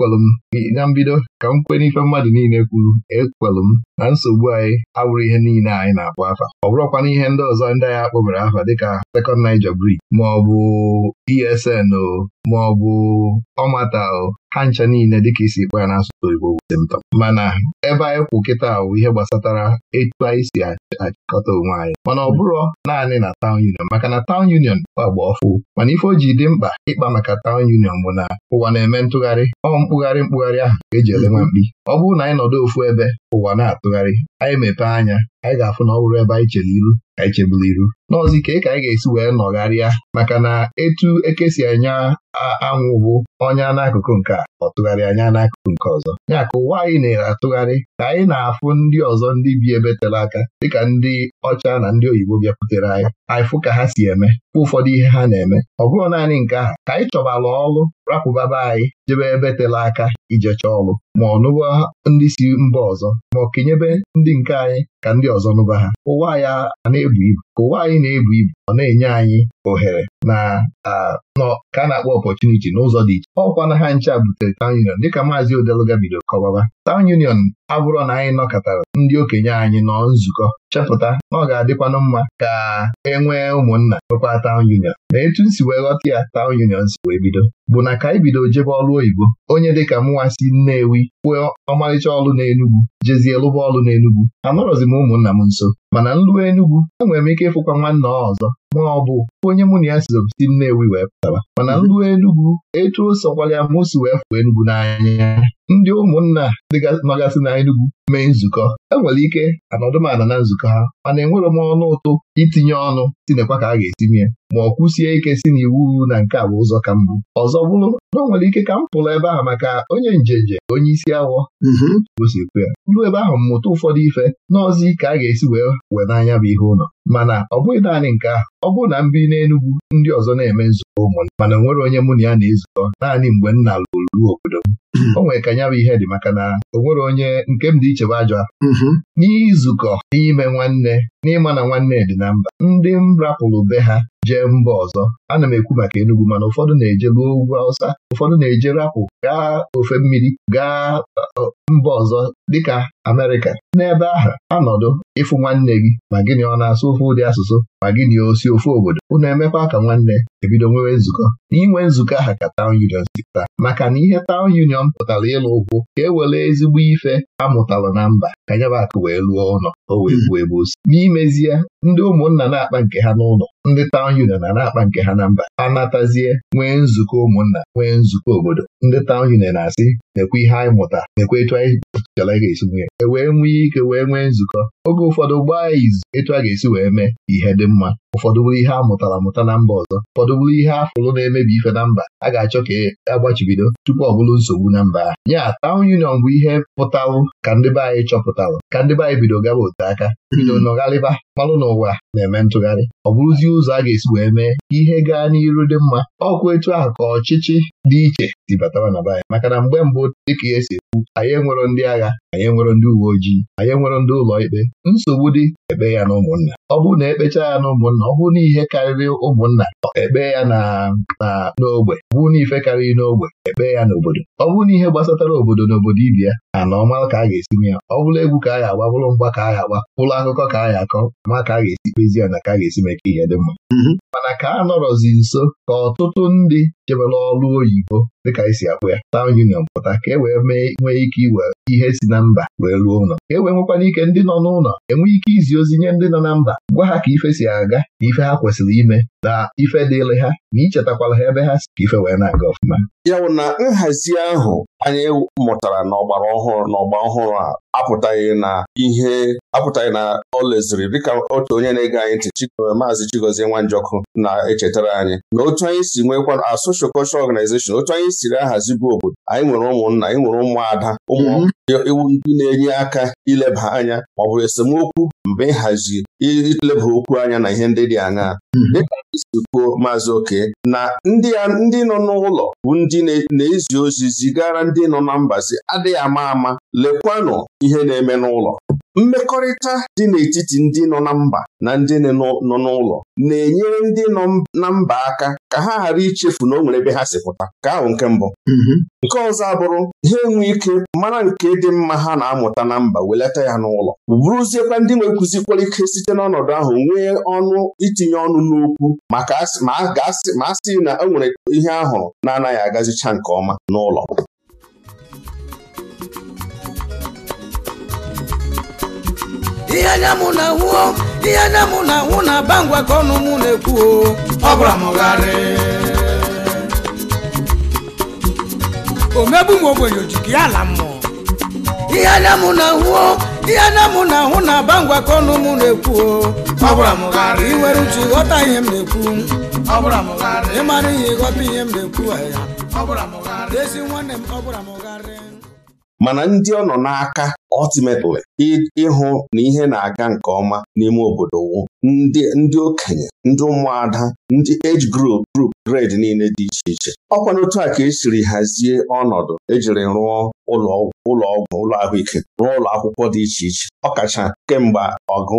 ekwelụ m na mbido ka m kwee n'ife mmadụ niile kwuru ekwelụ m na nsogbu anyị abụrụ ihe niile anyị na-akpọ afa ọ bụrụkwana ihe ndị ọzọ ndị anyị akpọbere afa dịka Second Niger Bridge maọbụ ESN o maọbụ ọmata o ha ncha niile dịka isi kpa ya na n'asụsụ Igbo symptom mana ebe anyị kwụ kịta bụ ihe gbasatara etu anyị si achịkọta onwe anyị mana ọ bụrụ naanị na Town Union maka na Town Union agba ọfụ mana ife o dị mkpa ịkpa maka Town Union bụ na ụwa na-eme ntụgharị ọ mkpụgharị mkpụgharị ahụ ka eji ele nwa mkpi ọ bụrụ na anyị nọdụ ofu ebe ụwa na-atụ tụgharị, anyị mepee anya anyị ga-afụ na ọ bụrụ ebe anyị chere iru ka anyị cheburu iru n'ọzi ike ka anyị ga-esi wee nọgharịa maka na etu eke si anya anwụ bụ ọnya n'akụkụ nke a ọ tụgharị anya n'akụkụ nke ọzọ ya ka ụwa anyị na-ere atụgharị ka anyị na-afụ ndị ọzọ ndị bi ebe tere aka dịka ndị ọcha na ndị oyibo bịakwutere anyị anyị fụ ka ha si eme fụ ụfọdụ ihe ha na-eme ọ bụrụ naanị nke ahụ ka anyị chọbala ọrụ rapụba be anyị jebe ebe tele aka ijecha ọlụ ma ọ nụba ndị si mba ọzọ ma ọ kenyebe ndị nke anyị ka ndị ọzọ nụba ha ụwa ya a na-ebu ibu ụwa anyị na-ebu ibu ọ na-enye anyị ohere na ka a na-akpọ ọpọchuniti n'ụzọ dị iche ọkwa na ha ncha butere tawn union dịka maazị Odeluga bido kọbaba tawn union abụrọ na anyị nọkọtara ndị okenye anyị nọ nzukọ chepụta na ọ ga-adịkwanụ mma ka e nwee ụmụnna nwekwa tawn union ma etu nsi wee ghọta ya tawn union si wee bido bụ na ka anyị bido jebe ọrụ oyibo onye dịka mụnwa si Nnewi kwue ọmarịcha ọlụ n'Enugwu jezie lụba ọlụ n'Enugwu anọrọzi m ụmụnna m nso mana nlụwa Enugwu enwere m ike ịfụkwa nwanna ọzọ ma ọ bụ onye mụ na ya sizo si Nnewi wee pụtara. mana m mhm. Enugwu etu o sokwara m si wee fụọ Enugwu n'anya ndị ụmụnna nọgasị na Enugwu mee nzukọ enwere ike anọdụmala na nzukọ ha mana enwere m ọnụ ụtụ itinye ọnụ tinekwa ka a ga-esi ma ọ kwụsie ike si na iwu na nke a bụ ụzọ ka mbụ ọzọ bụrụ na ọ nwere ike ka m pụrụ ebe a maka onye njenje onye isi awọ gosipụ mhm. ya ruo ebe ahụ mmụta ụfọdụ ife n'ọzọ ike a ga-esi wee wee n'anya bụ ihe ụlọ mana ọ bụghị naanị nke ahụ ọ bụrụ na m bi n'Enugwu ndị ọzọ na-eme nzukọ ụmụnne mana onwere nwere onye mụ na ya na-ezukọ naanị mgbe nna lụrụ obodo m hmm. o nwere ka ya bụ ihe dị maka na onwere onye nke m dị ichebe ajọ mm-hmm. n'izukọ n'ime nwanne n'ịma na nwanne dị na mba ndị m rapụrụ be ha jee mba ọzọ ana m ekwu maka Enugwu, mana ụfọdụ na-ejebe ugwu awụsa, ụfọdụ na-eje rapụ gaa ofe mmiri gaa mba ọzọ dịka Amerịka n'ebe ahụ anọdụ ịfụ nwanne gị ma gịnị ọ na-asụ ofe ụdị asụsụ ma gịnị osi ofe obodo unu emekwa ka nwanne ebido nwewe nzukọ n'inwe nzukọ aha ka Town Union si taa maka na ihe Town Union pụtara ịlụ ụkwụ ka e were ezigbo ife amụtala na mba ka akụ wee lụọ ụlọ o wee buo ebe osi n'imezie ndị ụmụnna na-akpa nke ha n'ụlọ ndị taụn union a na-akpa nke ha na mba ha natazie nwee nzukọ ụmụnna nwee nzukọ obodo ndị taụn union na-asị nekwe ihe anyị mụta nekwe etu anyị chọrọ ga-esi nwee e wee nwee ike wee nwee nzukọ oge ụfọdụ gbaa ya izu etu a ga-esi wee mee ihe dị mma ụfọdụ bụrụ ihe a mụtara amụta na mba ọzọ ụfọdụ bụrụ ihe a fụrụ na-emebi ife na mba a ga-achọ ka e agbachibido tupu ọ bụrụ nsogbu na mba ahụ ya taụn union bụ ihe pụtarụ ka ndị be anyị chọpụtarụ ka ndị be anyị bido gaba ote aka bido nọgharịba malụ n'ụwa na-eme ntụgharị ọ bụrụzi ụzọ a ga-esi wee mee ihe gaa n'iru dị mma ọkwa etu a ka ọchịchị dị iche si batara na be maka na mgbe mbụ dịka ihe si ekwu anyị enwero ndị agha anyị enwero ndị uwe ojii anyị enwero ndị ụlọ ikpe nsogbu dị ekpe ya na ụmụnna ọ bụrụ na ekpecha ya na ụmụnna ọ bụrụ na ihe karịrị ụmụnna ekpe ya na n'ogbe ọ bụrụ na ife karịrị n'ogbe ekpe ya n'obodo ọ bụrụ na ihe gbasatara obodo na obodo ibe ya na na ọma ka a ga-esinwe ya ọ bụrụ egwu ka a ya agba bụrụ mgba ka a ga-agba bụrụ akụkọ ka a ya akọ ma ka a ga-esi kpezi ya na ka a ga-esi mee ka ihe dị mma mm-hmm. mana ka a nọrọzi nso ka ọtụtụ ndị jebela ọrụ oyibo dịka anyị si akpụ ya Union pụta ka e wee nwee ike iwe ihe si na mba wee ruo ụlọ ka e wee nwekwana ike ndị nọ n'ụlọ enwee ike izi ozi nye ndị nọ na mba gwa ha ka ife si aga na ife ha kwesịrị ime na ife dịịrị ha na ichetakwala ha ebe ha si ka ife wee na-aga ọfụma ya bụ na nhazi ahụ anyị mụtara n'ọgbara ọhụrụ n'ọgba ọhụrụ a apụtaghị na ihe apụtaghị na ọ leziri dịka otu onye na-ege anyị ntị maazị Chigozie Nwanjọkụ na-echetara anyị na otu anyị si nwekwa a social cultural otu anyị siri ahazi bụ obodo anyị nwere ụmụnna anyị nwere ụmụada ụmụ mhm. iwu ndị na-enye aka ileba anya ma ọ bụ esemokwu mgbe ịhazi ileba okwu anya na ihe ndị dị aṅaa hmm. dịka ndị kwuo maazị oke na ndị nọ n'ụlọ bụ ndị na-ezi ozi zigara ndị nọ na mbazi adịghị ama ama lekwanụ ihe na-eme n'ụlọ mmekọrịta dị n'etiti ndị nọ na mba na ndị nọ n'ụlọ na-enyere ndị nọ na mba aka ka ha ghara ichefu na o nwere ebe ha si pụta ka ahụ nke mbụ hmm. nke ọzọ abụrụ ha enwe ike mara nke dị mma ha na-amụta na mba welata ya n'ụlọ bụrụziekwa ndị nwekwụzikwara ike site n'ọnọdụ ahụ nwee ọnụ itinye ọnụ n'okwu ma a sị na e nwere ihe ahụ na-anaghị agazicha nke ọma n'ụlọ ihe anya na na aba ngwa ka ọnụ mụ na ọ bụla omegbu m ogbenye ojigi ya ala mmụọ ihe anya mụ na-ahụ ihe anya m na-ahụ na aba ngwakọ ọnụ na-ekwu ọ bụla uche ịghọta ihe m na-ekwu mara ihe ịghọta ihe m na-ekwu ezi nwanne m ọ bụla m ghara mana ndị ọ nọ n'aka ultimately ịhụ na ihe na-aga nke ọma n'ime obodo wu ndị okenye ndị ụmụada ndị age group group grade niile dị iche iche ọkwa n'otu a ka esiri hazie ọnọdụ ejiri rụọ ụlọ ọgwụ ụlọ ahụike rụọ ụlọ akwụkwọ dị iche iche ọkacha kemgbe ọgụ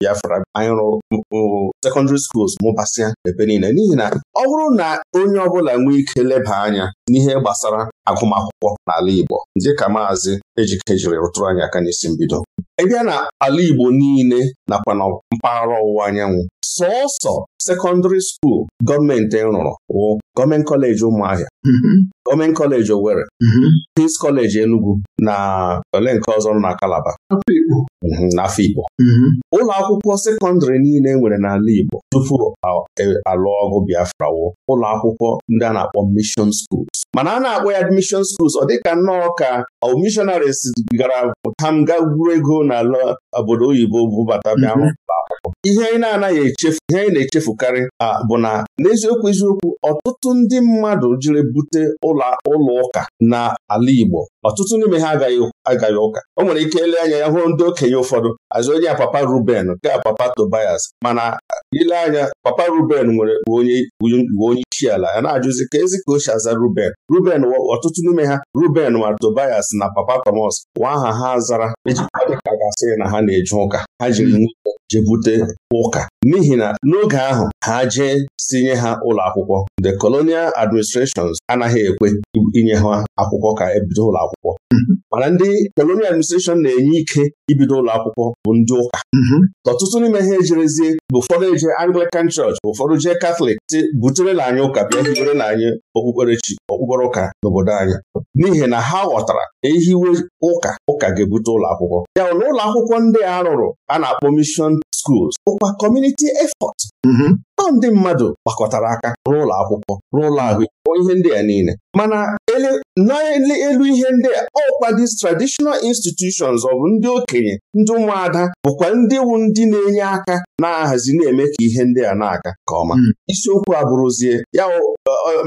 Biafra anyị rụrụ secondary schools mụbasịa ebe niile n'ihi na ọ bụrụ na onye ọbụla nwee ike leba anya n'ihe gbasara agụmakwụkwọ n'ala Igbo dịka maazị Ejike jiri tụrụ anyị aka n'isi mbido ị bịa na ala Igbo niile nakwa na mpaghara ọwụwa anyanwụ sọọsọ sekọndịrị skuul gọọmenti rụrụ wụ gọọmenti kọleji ụmụahịa mm-hmm. Omen kọleji Owerri mhm. Peace kọleji Enugu na ole nke ọzọ nọ na Kalaba. n'afọ Igbo mhm, mhm. ụlọ akwụkwọ sekọndịrị niile e nwere n'ala Igbo tupu alụ e, ọgụ Biafra wo ụlọ akwụkwọ ndị a na-akpọ mishon schools mana a na-akpọ ya admission schools ọ dịka nnọọ ka missionaries gara ham ga gwuru ego n'ala obodo oyibo bụbata bịa ihe anyị na-anaghị echefu ihe anyị na-echefukarị bụ na n'eziokwu eziokwu ọtụtụ ndị mmadụ jiri bute ụlọ ụka n'ala Igbo ọtụtụ n'ime ha agaghị ụka o nwere ike ele anya ya hụrụ ndị okenye ụfọdụ azụ onye a papa Ruben nke papa Tobias mana ile anya papa Ruben nwere onye onye isi ala ya na-ajụzi ka ezi ka o aza Ruben Ruben ọtụtụ n'ime ha Ruben ma Tobias na papa Thomas wa aha ha zara ejikwa dịka gasị na ha na-eje ụka ha jiri hmm. jebute ụka n'ihi na n'oge ahụ ha jee tinye ha ụlọ akwụkwọ the colonial administrations anaghị ekwe inye ha akwụkwọ ka ebido ụlọ akwụkwọ mm-hmm. mana ndị colonial administration na-enye ike ibido ụlọ akwụkwọ bụ ndị ụka mm-hmm. ọtụtụ n'ime ha ejerezie bụ ụfọdụ eje Anglican Church ụfọdụ jee Catholic butere na anyị ụka bịa hibere na anyị okpukperechi okpukpere ụka n'obodo anyị n'ihi na ha ghọtara ehiwe ụka ụka ga-ebute ụlọ akwụkwọ ya na ụlọ akwụkwọ ndị a rụrụ a na-akpọ mishon schools ụkwa community effort mm-hmm. ọ ndị mmadụ gbakọtara aka rụọ akwụkwọ rụọ ahụike ihe ndị a niile mana n'elu ihe ndị a ọkwa these traditional institutions ọ bụ ndị okenye ndị ụmụada bụkwa ndị wu ndị na-enye aka na-ahazi na-eme ka ihe ndị a na-aga nke ọma mm. isiokwu abụrụzie ya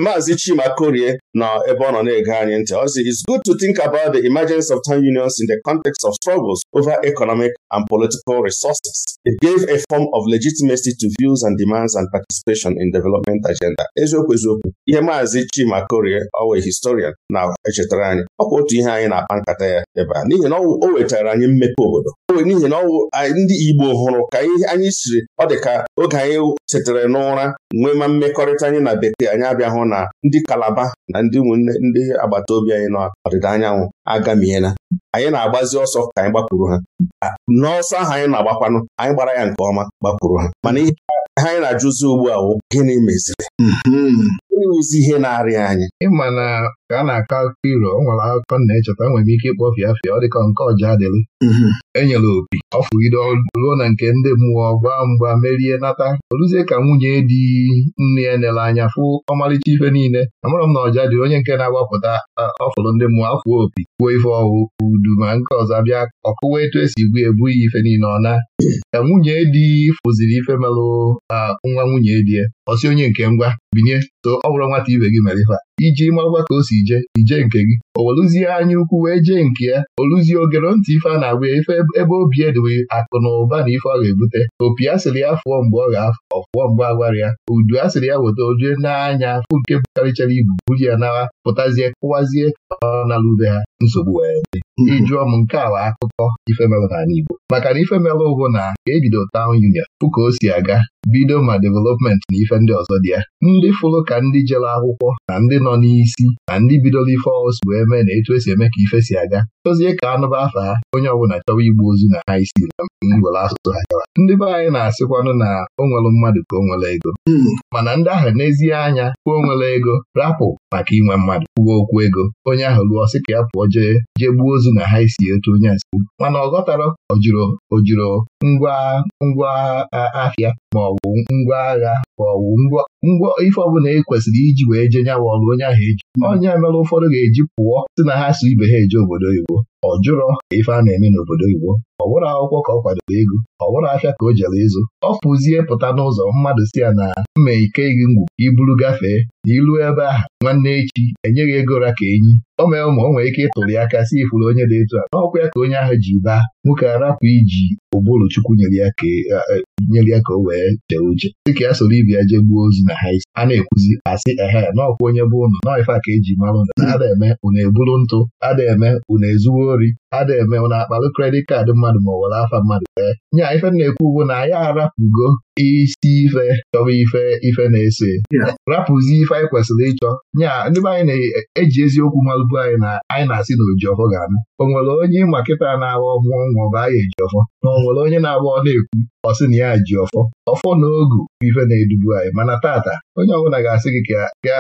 maazị Chima Korie na ebe ọ nọ na-ege anyị ntị ọ sị it's good to think about the emergence of town unions in the context of struggles over economic and political resources. It gave a form of legitimacy to views and demands and participation in development agenda. Eziokwu eziokwu ihe maazi Chima Korie ọwa historian na-echetara anyị ọkwa otu ihe anyị na-akpa nkata ya ebe a n'ihi na o wetara anyị mmepe obodo n'ihi na ọwụ ndị Igbo hụrụ ka anyị siri ọ dị ka oge anyị chetara n'ụra nwee ma mmekọrịta anyị na bekee anyị abịahụ na ndị Kalaba na ndị ụmụnne ndị agbata obi anyị n'ọdịda anyanwụ agamiela anyị na-agbazi ọsọ ka anyị gbakwuru ha n'ọsọ ahụ anyị na-agbakwanụ anyị gbara ya nke ọma gbakwuru ha mana ihe anyị na-ajụzi ugbu a gịnị meziri hmm. onye ihe na anyị ịma na ka a na-akọ akụkọ iro ọ nwere akụkọ na-echeta nwere m ike ịkpọ fịafịa ọ dịka nke ọja adịrị mhm. enyere opi ọ fụgide ruo na nke ndị mmụọ gwa mgba merie nata Oluzie ka nwunye di nne ya nere anya fụ ọmarịcha ife niile amarọ m na ọja dị onye nke na-agbapụta ọfụrụ ndị mmụọ afụo opi kwuo ife ọwụ udu ma nke ọzọ bịa ọkụwa etu esi gbu ebu ife niile ọ na mhm. ka nwunye di fụziri ife merụ nwa nwunye die ọsi onye nke ngwa binye so ọ bụrụ nwata ibe gị mere ife iji marakwa ka o si je ije nke gị o welụzie anya ukwu wee jee nke ya oluzie ogere ntị ife a na-agba ya ife ebe obi edowe akụ na ụba na ife ọ ga-ebute opi a sịrị ya fụọ mgbe ọ ga-afụọ mgbe agwara ya udu asịrị ya weta ojue n'anya fụ nke bụkarịchara ibu buru ya nawa pụtazie kụwazie ọ na lube ha nsogbu wee dị ịjụọ mm-hmm. m nke awa akụkọ ifemelụ n'ala Igbo maka na ifemelụ bụ na ka ebido tawn union ka o si aga bido ma development na ife ife ndị ọzọ dị ya ndị fụrụ ka ndị jere akwụkwọ na ndị nọ n'isi na ndị bidoro ife ọs wee mee na etu esi eme ka ife si aga Tozie ka anụba afa ha onye ọbụla chọwa igbu ozu na ha isi na ngwere asụsụ ha chọrọ ndị be anyị na-asịkwanụ na o nwere mmadụ ka o nwere ego hmm. mana ndị ahụ n'ezie anya kwuo nwere ego rapụ maka inwe mmadụ kwuo okwu ego onye ahụ rụọ sị ka ya pụọ jee jee gbuo ozu na ha isi etu onye asịrị mana ọ ghọtara ojiro ngwa ngwa ahịa ma ngwa agha ma ọ bụ ngwa ife ọbụla e kwesịrị iji wee jee nyawa ọrụ onye ahụ eji onye mere ụfọdụ ga-eji pụọ si na ha so ibe ha eje obodo oyibo ọ jụrọ ife a na-eme n'obodo oyibo ọ bụrụ akwụkwọ ka ọ kwadoro ego ọ bụrụ afịa ka o jere ịzụ ọ pụzie pụta n'ụzọ mmadụ si ya na mma ike gị ngwu iburu gafee na ilu ebe ahụ nwanne echi enyeghị ego ra ka enyi o mere ma o nwere ike ịtụrụ aka si ifuru onye dị etu a n'ọkwa ya ka onye ahụ ji baa nwoke arapụ iji ụbụrụ Chukwu nyere ya ka o wee jee uche dịka ya soro ibi jee gbuo ozu na ha a na-ekwuzi asị ehe naọkwa onye bụ ụnụ ife ka eji mara ụnụ ada eme ụnụ eburu ntụ ada eme ụnụ ezuwo ori ada eme ụnụ akpalụ kredit kaadị mmadụ ma ọ were afa mmadụ ee nya ife na-ekwu ugbo na ya arapụgo isi ife chọrọ ife ife na-ese rapụzi ife anyị kwesịrị ịchọ nyaa ndị be anyị na-eji eziokwu malụbu anyị na anyị na-asị na ojiọfọ ga-anụ o nwere onye ịma kịta na-agba ọgwụ nwa ọba anyị ejiọfọ na o nwere onye na-agba ọ na-ekwu ọ sị na ya ji ọfọ ọfọ na ogu bụ ife na-edubu anyị mana tata onye ọbụla ga-asị gị ka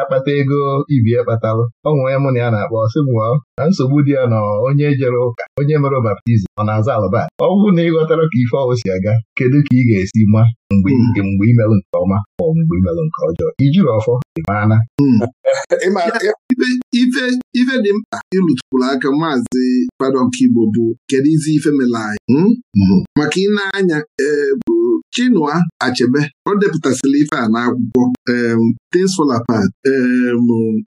akpata ego ibi kpatalụ ọ nwee mụ na ya na-akpọ ọsị mụọ na nsogbu dị ya na onye jere ụka onye mere baptizim ọ na-aza alụba ọ bụrụ na ị ghọtara ka ife ọwụ si aga kedu ka ị ga-esi ma mgbe imelụ hmm. nke ọma ma ọ mgbe imelụ nke ọjọọ ijiri ọfọ ịmaana hmm. ife dị mkpa ịrụtụrụ aka maazị fada Ọkigbo bụ kedu izi ife mere anyị hmm? mhm. maka ị na-anya eh, bụ Chinua Achebe ọ depụtasịrị ife a n'akwụkwọ Things Fall Apart,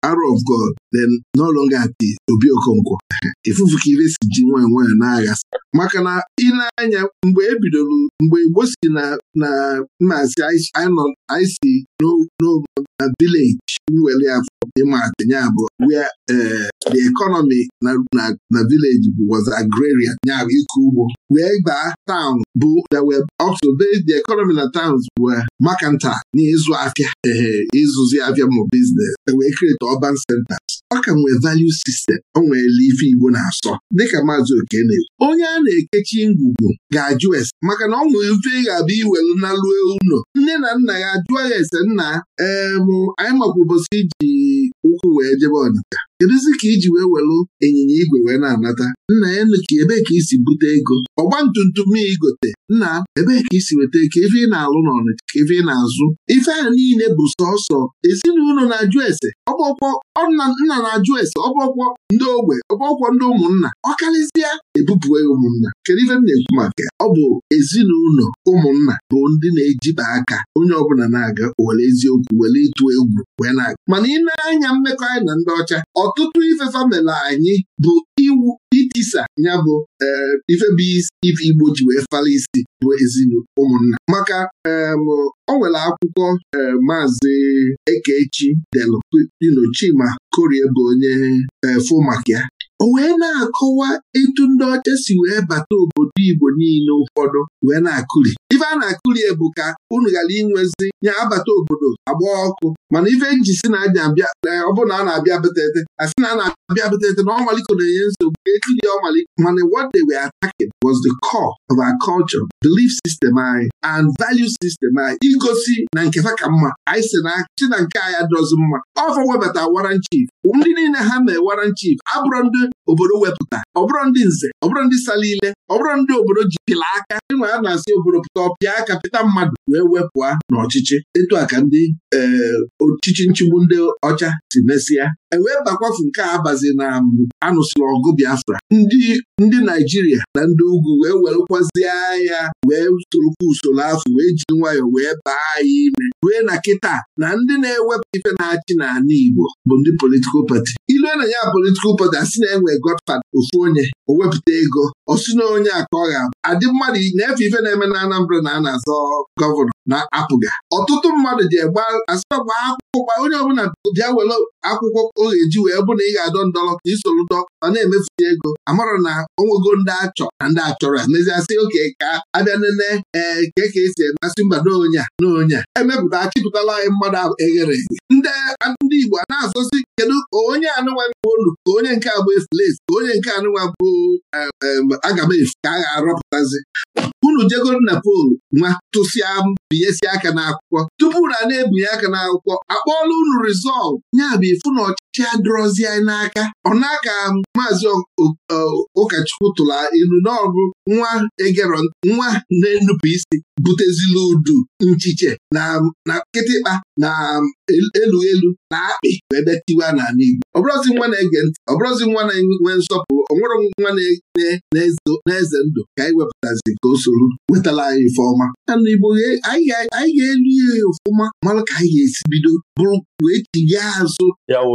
Arrow God, then No Obi Okonkwo ahịa ịfụfụ ka ire si ji nwayọ nwayọ na-aghasị maka na ị anya mgbe ebidoro mgbe Igbo si na mmazi anyị si na vileji nwere afọ ịmaatị ya bụ where the economy na vileji was agrarian ya bụ ịkọ ugbo wee baa taụn bụ also the economy na towns were mercantile n'ịzụ afịa ee ịzụzi afịa ma biznes e wee create urban center ọ ka nwee value system o nweela ife Igbo na-asọ dịka maazị oke na-ekwu onye a na-ekechi ngwugwu ga-ajụ ese maka na ọ nwere mfe ga-abịa iwelu na luo ụlọ nne na nna ya jụọ ya ese nna mụ anyị makwa ụbọchị iji ụkwụ wee jebe ọnịcha kedụzi ka iji wee welụ ịnyịnya igwe wee na-anata nna ya ka ebee ka i si bute ego ọgba tumtum igote nna ebee ka isi weta ka ife ị na-alụ n'ọnịcha ka ife ị na-azụ ife a niile bụ sọsọ ezinụlọ na-ajụ ese ọgbọkwọ nna na-ajụ ese ọgbọkwọ ndị ogbe ọgbọkwọ ndị ụmụnna ọ karịsịa ebupụe ụmụnna kedu ife m na-ekwu maka ọ bụ ezinụlọ ụmụnna bụ ndị na-ejiba aka onye ọbụla na-aga were eziokwu were ịtụ egwu wee na-aga mana ị na-anya mmekọ anyị na ndị ọcha ọtụtụ ife famịlị anyị bụ iwu itisa ya bụ eh, ife bụ ife Igbo ji wee fala isi bụ ezinụlọ ụmụnna maka o nwere akwụkwọ eh, maazị Ekechi delu Chima Korie bụ onye efu eh, maka ya o wee na-akọwa etu ndị ọcha si wee bata obodo Igbo niile ụfọdụ wee na-akụri ife a na akụli bụ ka unu ghara inwezi nye abata obodo agba ọkụ mana ife nji si na eh, ọ bụrụ na a na-abịa betete a na a na-abịa betete na ọmaliko na-enye nsogbu etiri ọmaliko mana what they were attacking was the core of our culture belief system anyị and value system anyị igosi na nke fa ka mma anyị si na chi na nke anyị adọzi mma ọfọ webata waran ndị niile ha mee waran chief abụrụ ndị obodo wepụta ọ bụrụ ndị nze ọ bụrụ ndị sala ile ọ bụrụ ndị obodo ji pịla aka ịnwa a na-asị obodo pụta ọpịa aka pịta mmadụ wee wepụa n'ọchịchị etu a ka ndị eh, ọchịchị nchigbu ndị ọcha si mesịa ewee bakwafu nke a abazi na anụsịrị ọgụ Biafra ndị ndị Naijiria na ndị ugwu wee wekwazie agha wee sorokwa usoro afọ wee jiri nwayọọ wee baa anyị ime rue na kịta na ndị na-ewepụ ife na-achị n'ala Igbo bụ ndị politikal pati ilue na ya politikal ụbọchị asị na enwe godfad ofu onye o wepụta ego osi na onye a ka adị mmadụ na-efe ife na-eme na Anambra na a na-azọ gọvanọ na apụga ọtụtụ mmadụ ji egba asịagba akwụkwọ gba onye ọbụla bịa were akwụkwọ ọ ga-eji wee bụ na ị ga-adọ ndọrọ ka isoro dọ ọ na-emefusi ego amara na onwego ndị achọ na ndị achọrọ meziasị oke ka abịa nene ee eh, ke ka esi emasị mba n'onye a n'onye a emepụta achịpụtala anyị mmadụ eghere eghe ndị ndị Igbo a na-azọsi kedu onye anụnwa bụ olu ka onye nke abụ efulefu ka onye nke anụwa bụ eh, eh, aga m efu ka a ga-arọpụtazi unu jegoro na poolu nwa tụsịa binyesi aka n'akwụkwọ tupu na na-ebinye aka n'akwụkwọ akpọọla unu rizọltụ nya bụ ifu na ọchịchị adọrọzi anyị n'aka ọ na maazi maazị ụkọchukwu tụrụ ilu n'ọbụ nwa egero nwa na-enupụ isi butezila udu nchiche na kịtịkpa na elu elu na akpị wee bịa tiwa n'ala Igbo ọbụrụzi nwa na-ege ntị ọbụrụzi nwa na-enwe nsọpụrụ ọ nwere nwa na-eze ndụ ka anyị wepụtazi ka o soro nwetala wetala anyị ife ọma yana igbo anyị ga-elu ihe ọfụma mara ka anyị ga-esi bido bụrụ wee tinye azụ ya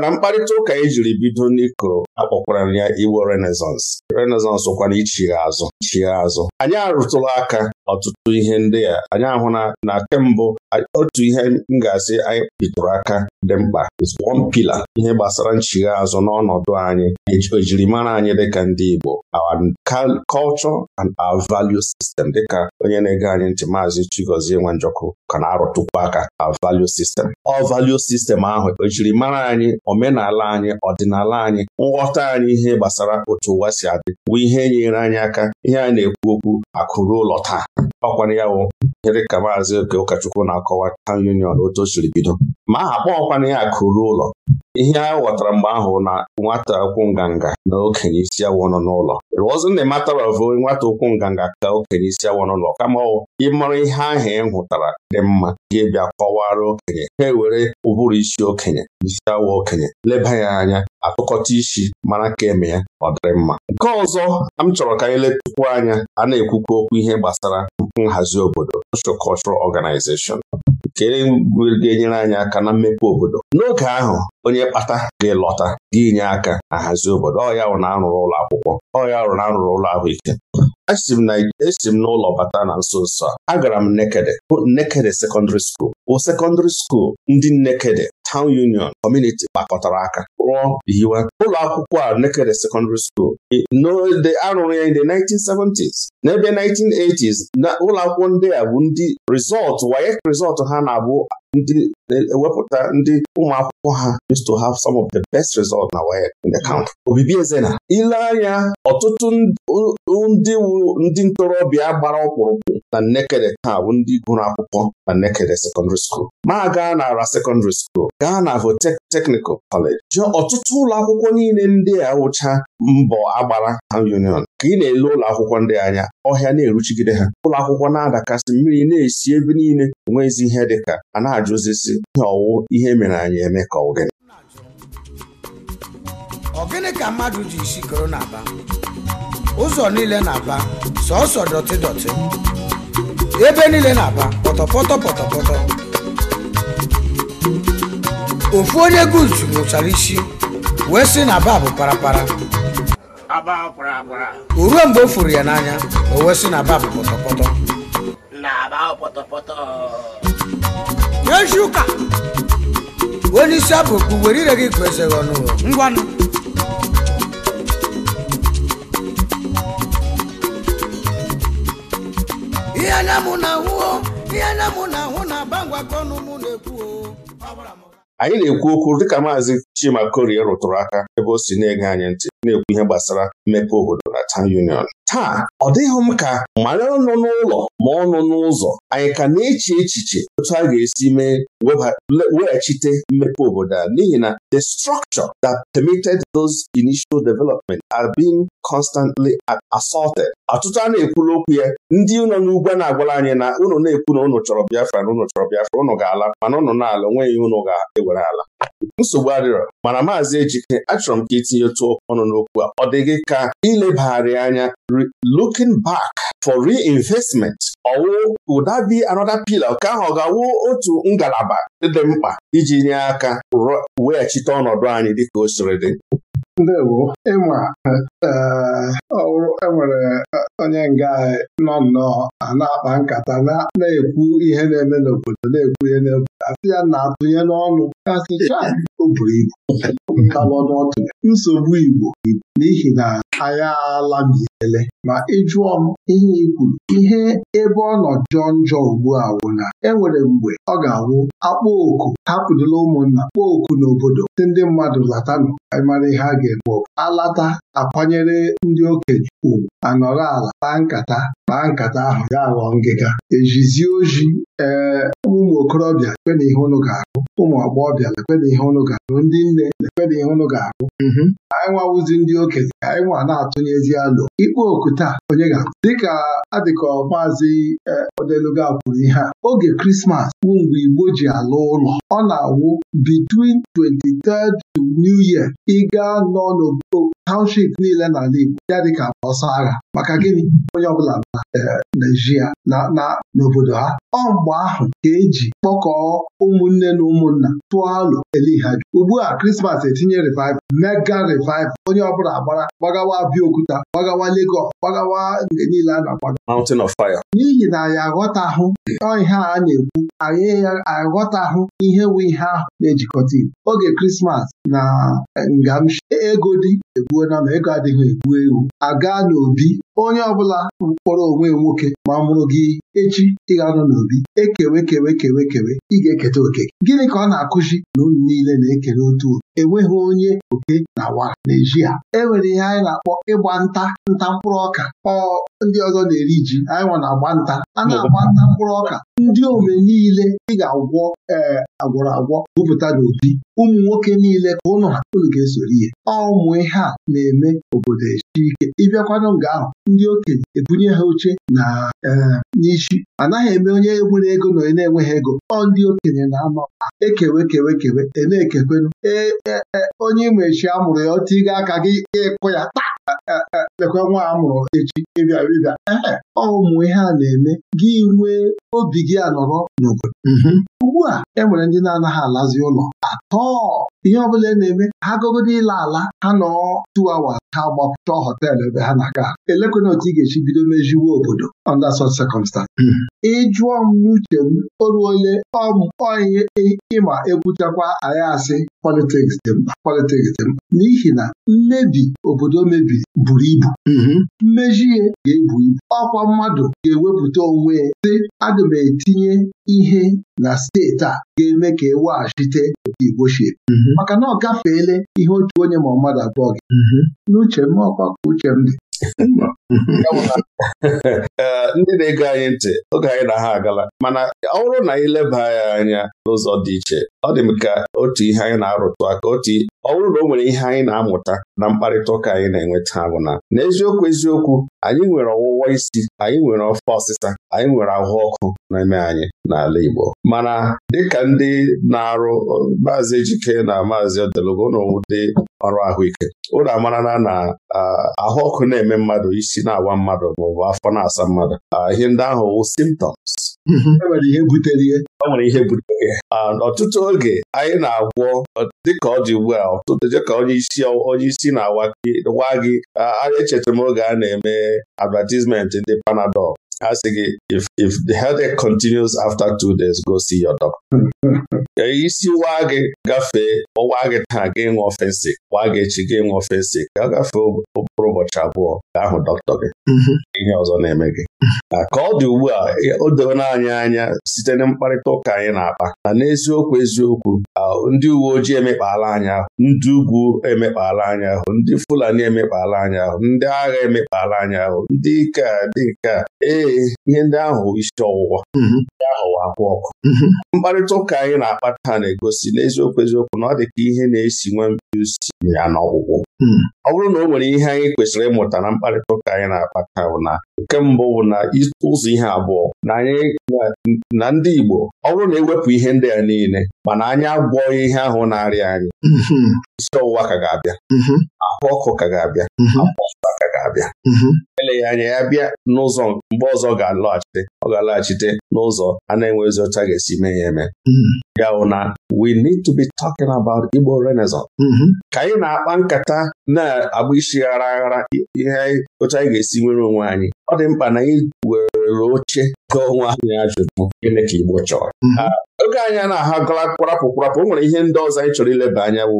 na mkparịta ụka e jiri bido n'iko akpọkwara ya iwo renaissance renaissance kwana ichigha azụ anyị arụtụla aka ọtụtụ ihe ndị a anyị ahụ na kembụ otu ihe m ga-asị anyị bitụrụ aka dị mkpa one pillar ihe gbasara nchigha azụ n'ọnọdụ anyị ejirimara anyị dịka ndị Igbo our culture and our value system dịka onye na-ege anyị ntị maazị Chigozie Nwanjọkụ ka na-arụtụkwu aka our value system ọ value system ahụ ejirimara anyị omenala anyị ọdịnala anyị nghọta anyị ihe gbasara otu ụwa si adị bụ ihe nyere anyị aka ihe a na-ekwu okwu akụrụ ụlọ taa ọkwara ya wụ ihe ka maazị oke ụkọchukwu na-akọwa taụn union otu o siri bido ma aha kpọọkwana ya akụ ụlọ ihe a ghọtara mgbe ahụ na nwata ụkwụ nganga na okenye isi awọ nọ n'ụlọ rụọzi na ịmataravụ nwata ụkwụ nganga ka okenye isi awọ n'ụlọ kama ọ ịmara ihe ahụ ị hụtara dị mma ga-ebịa kọwara okenye ha ewere ụbụrụ isi okenye isi awọ okenye leba ya anya atụkọta isi mara ka eme ya ọ dịrị mma nke ọzọ m chọrọ ka anyị letụkwu anya a na-ekwukwa okwu ihe gbasara nhazi obodo social cultural organization kere ga-enyere anyị aka na mmepe obodo n'oge ahụ onye kpata ga-elọta ga-enye aka ahazi obodo ọ ya na arụrụ ụlọ akwụkwọ ọ ya na arụrụ ụlọ ahụike esi m n'ụlọ bata na nso nso a agara m Nnekede bụ Nnekede sekọndịrị skuul bụ sekọndịrị skuul ndị Nnekede town union community gbakọtara aka rụọ ụlọ akwụkwọ a Nekede secondary school n'ode arụrụ ya in 1970s n'ebe 1980s na ụlọ akwụkwọ ndị a bụ ndị rizọtụ wayek rizọtụ ha na-abụ ndị e, ewepụta ndị ụmụakwụkwọ ha used to have some of the best results na WAEC in the country. Obibi na. ile anya ọtụtụ ndị wuru ndị ntorobịa gbara ọkpụrụkpụ na Nnekede taa bụ ndị gụrụ akwụkwọ na Nnekede secondary school ma gaa nara secondary school gaa na Votek Technical College jụọ ọtụtụ ụlọ akwụkwọ niile ndị a wụcha mbọ agbara ha union ka ị na-ele ụlọ akwụkwọ ndị anya ọhịa na-eruchigide ha ụlọ akwụkwọ na-adakasị mmiri na-esi ebe niile enweghịzi ihe dịka a ajụzisi ihe ọwụ ihe mere anyị eme ka ọ gịnị. ka mmadụ ji isi koro na-aba ụzọ niile na-aba sọọsọ dọtị dọtị ebe niile na-aba pọtọpọtọ pọtọpọtọ ofu onye guzu nwụchara isi wee sị na aba bụ parapara o ruo mgbe o furu ya n'anya o wee sị na aba bụ pọtọpọtọ n'echi ụka onye isi abụkpu were ire gị kwesịrị ọnụ ngwanụ ihe na mụ na ahụ ihe na mụ na ahụ na-aba ngwakọ ọnụ mụ na-ekwu anyị na-ekwu okwu dịka maazị Chima Korie rụtụrụ aka ebe o si na-ege anyị ntị na-ekwu ihe gbasara mmepe obodo na town union taa ọ dịghị m ka mara ọnụ n'ụlọ ma ọnụ n'ụzọ anyị ka na-eche echiche otu a ga-esi mee weghachite mmepe obodo a n'ihi na the structure that permitted those initial development are being constantly assaulted ọtụtụ a na-ekwuru okwu ya ndị ụlọ n'ugwu na-agwara anyị na ụnụ na-ekwu na ụnụ chọrọ Biafra na ụnụ chọrọ Biafra ụnụ ga-ala mana ụnụ na-ala onweghị ụnụ ga-ewere ala nsogbu adịrọ mana maazị Ejike achọrọ m ka itinye otu ọnụ n'okwu a ọ dịghị ka ilebagharị anya looking back for reinvestment ọwụ would that be another pillar ka ahụ ọ ga-awụ otu ngalaba dị mkpa iji nye aka weghachite ọnọdụ anyị dịka o siri dị ịma enwere eh, onye nga nọ nnọọ a na-akpa nkata na-ekwu ihe na-eme n'obodo na-ekwu ihe n'obodo asị ya na-atụnye n'ọnụ asịcha o buru ibu nsogbu Igbo n'ihi na m alabiele ma ị jụọ m ihe ikwu, ihe ebe ọ nọ jọ njọ ugbu a wụ na enwere mgbe ọ ga-awụ akpọ oku hapụdụla ụmụnna kpọọ oku n'obodo si ndị mmadụ latanụ mara ihe a ga-eme alata akwanyere ndị okenye ugwu anọrọ ala kpaa nkata kpaa nkata ahụ ya ghọọ ngịga ejizie oji ee ụmụ okorobịa lekpena ihe ụnụ ga-ahụ ụmụ agbọghọbịa lekpena ihe ụnụ ga-ahụ ndị nne lekpena ihe ụnụ ga-ahụ mm-hmm. anyị nwawụzi ndị okenye anyị nwa na-atụnyezi alụ ikpe oku taa onye ga-ahụ dịka adịka maazị odeluga kwuru ihe a oge krismas bụ mgbe igbo ji alụ ụlọ ọ na-awụ bitwin 23rd to New Year ị gaa nọ township niile n'ala Igbo ya dịka ọsọ agha maka gịnị onye ọbụla na e, Naijiria na n'obodo ha ọ mgbe ahụ ka eji kpọkọọ ụmụnne na ụmụnna tụọ alụ eliha ugbu a Krismas etinye revival mega revival onye ọbụla gbara gbagawa Abịaokuta gbagawa Legọs gbagawa mgbe niile a na-agbaga Mountain of Fire. n'ihi na anyị aghọtahụ ihe a na-ekwu anyị aghọtahụ ihe wu ihe ahụ na-ejikọta Igbo oge Krismas na e, Ngamshi e, ego dị egwu ekwuona ma ego adịghị egbu ewu aga n'obi onye ọbụla mkpọrọ onwe nwoke ma mụrụ gị echi ị ga-anọ n'obi ekewe kewe kewe kewe ị ga-eketa oke gịnị ka ọ na-akụzi na unu niile na-ekere otu enweghị onye oke na wa na-eji ha e ihe anyị na-akpọ ịgba nta nta mkpụrụ ọka ọ ndị ọzọ na-eri ji anyị nwa na-agba nta a na-agba nta mkpụrụ ọka ndị ome niile ị ga-agwọ ee agwọrọ agwọ gụpụta n'obi ụmụ nwoke niile ka ụnụ ha ga-esoro ihe ọ ụmụ ihe a na-eme obodo echi ike ịbịakwanụ nga ahụ ndị okenye ebunye ha oche na e, n'isi anaghị eme onye nwere ego na onye na-enweghị ego ọ ndị okenye na-ama ekewe kewe kewe e na-ekekwenụ e, e, onye imechi amụrụ ya otu ịga aka gị ịkụ ya lekwa nwa amụrụ echi ịbịa ịbịa ee ọ ụmụ ihe a na-eme gị nwee obi gị anọrọ n'obodo mm-hmm. ugbu a e nwere ndị na-anaghị alazi ụlọ atọ ihe ọbụla e na-eme ha gogodo ịla ala ha nọ tuawa ha gbapụta họteelụ ebe ha na-aga elekwana otu ị ga echi bido meziwo obodo under such circumstance hmm. ịjụọ m n'uche m oruole ọmụọihe ịma ekwuchakwa anyị asị politiks dị mkpa politiks dị mkpa n'ihi na mmebi obodo mebiri buru ibu mhm. mmejie ga-ebu ibu ọkwa mmadụ ga-ewepụta onwe ya sị m etinye ihe na steeti a ga-eme ka e weghachite otu Igbo mhm. maka na ọ gafeela ihe otu onye ma mmadụ abụọ gị mhm. n'uche m ọkwa ka uche m dị ndị na ego anyị ntị oge anyị na ha agala mana ọ bụrụ na anyị leba ya anya n'ụzọ dị iche ọ dị m ka otu ihe anyị na-arụtụ aka otu ọ bụrụ na o nwere ihe anyị na-amụta na mkparịta ụka anyị na enweta agwụna. bụ na n'eziokwu eziokwu anyị nwere ọwụwa isi anyị nwere ọfọ ọsịsa anyị nwere ahụ ọkụ na-eme anyị n'ala Igbo mana dịka ndị na-arụ maazị Ejike na maazị Odelogo na ọrụ ahụike ụlọ amarana na ahụ ọkụ na-eme mmadụ isi na-agwa mmadụ maọbụ afọ na-asa mmadụ ihe ndị ahụ wụ simptoms mhm. e ihe butere ihe. ọ e nwere ihe butere ọtụtụ oge anyị na-agwọ dịka ọ dị ugbu a ụtụtụ ka onye isi onye isi na-awa gị echeta m oge a na-eme advatizmenti ndị panadol. ha sị gị if the headache continues after two days go see your doctor. isi waa gị gafee ọwa gị taa gị ṅụọ ofensi waa gị echi gị ṅụọ ofensi ka gafee ụkpụrụ ụbọchị abụọ ka ahụ dọkịta gị ihe ọzọ na-eme gị ka ọ dị ugbu a o doola anyị anya site na mkparịta ụka anyị na-akpa na n'eziokwu eziokwu ndị uwe ojii emekpala anyị ahụ ndị ugwu emekpala anyị ahụ ndị Fulani emekpala anyị ahụ ndị agha emekpala anyị ahụ ndị ike dị nke ee eh, ihe ndị ahụ isi ọwụwa mm-hmm. ahụ akwụ ọkụ mm-hmm. mkparịta ụka anyị na akpata na-egosi n'eziokwu eziokwu na ọ dị ka ihe na-esi nwa mbiusi ya n'ọgwụgwụ mm-hmm. ọ bụrụ na o nwere ihe anyị kwesịrị ịmụta na mkparịta ụka anyị na akpata bụ na nke mbụ bụ na ụzọ ihe abụọ na ndị Igbo ọ bụrụ na ewepụ ihe ndị a niile mana anyị agwọ ihe ahụ na-arịa anyị isi ọwụwa ka ga-abịa ahụ ọkụ ka ga-abịa abịa mhm. eleghị anya ya bịa n'ụzọ mgbe ọzọ ga-alọghachite ọ ga alọghachite n'ụzọ a na-enweghịzi ọcha ga-esi mee ya eme mhm. ya bụ na we need to be talking about Igbo Renaissance mhm. ka anyị na-akpa nkata na-agba isi ghara aghara ihe ụcha anyị ga-esi nwere onwe anyị ọ dị mkpa na anyị were oche gụọ onwe anyị ajụjụ gịnị ka Igbo chọrọ oge anyị na agala kwarapụ kwarapụ o nwere ihe ndị ọzọ anyị chọrọ ileba anya wụ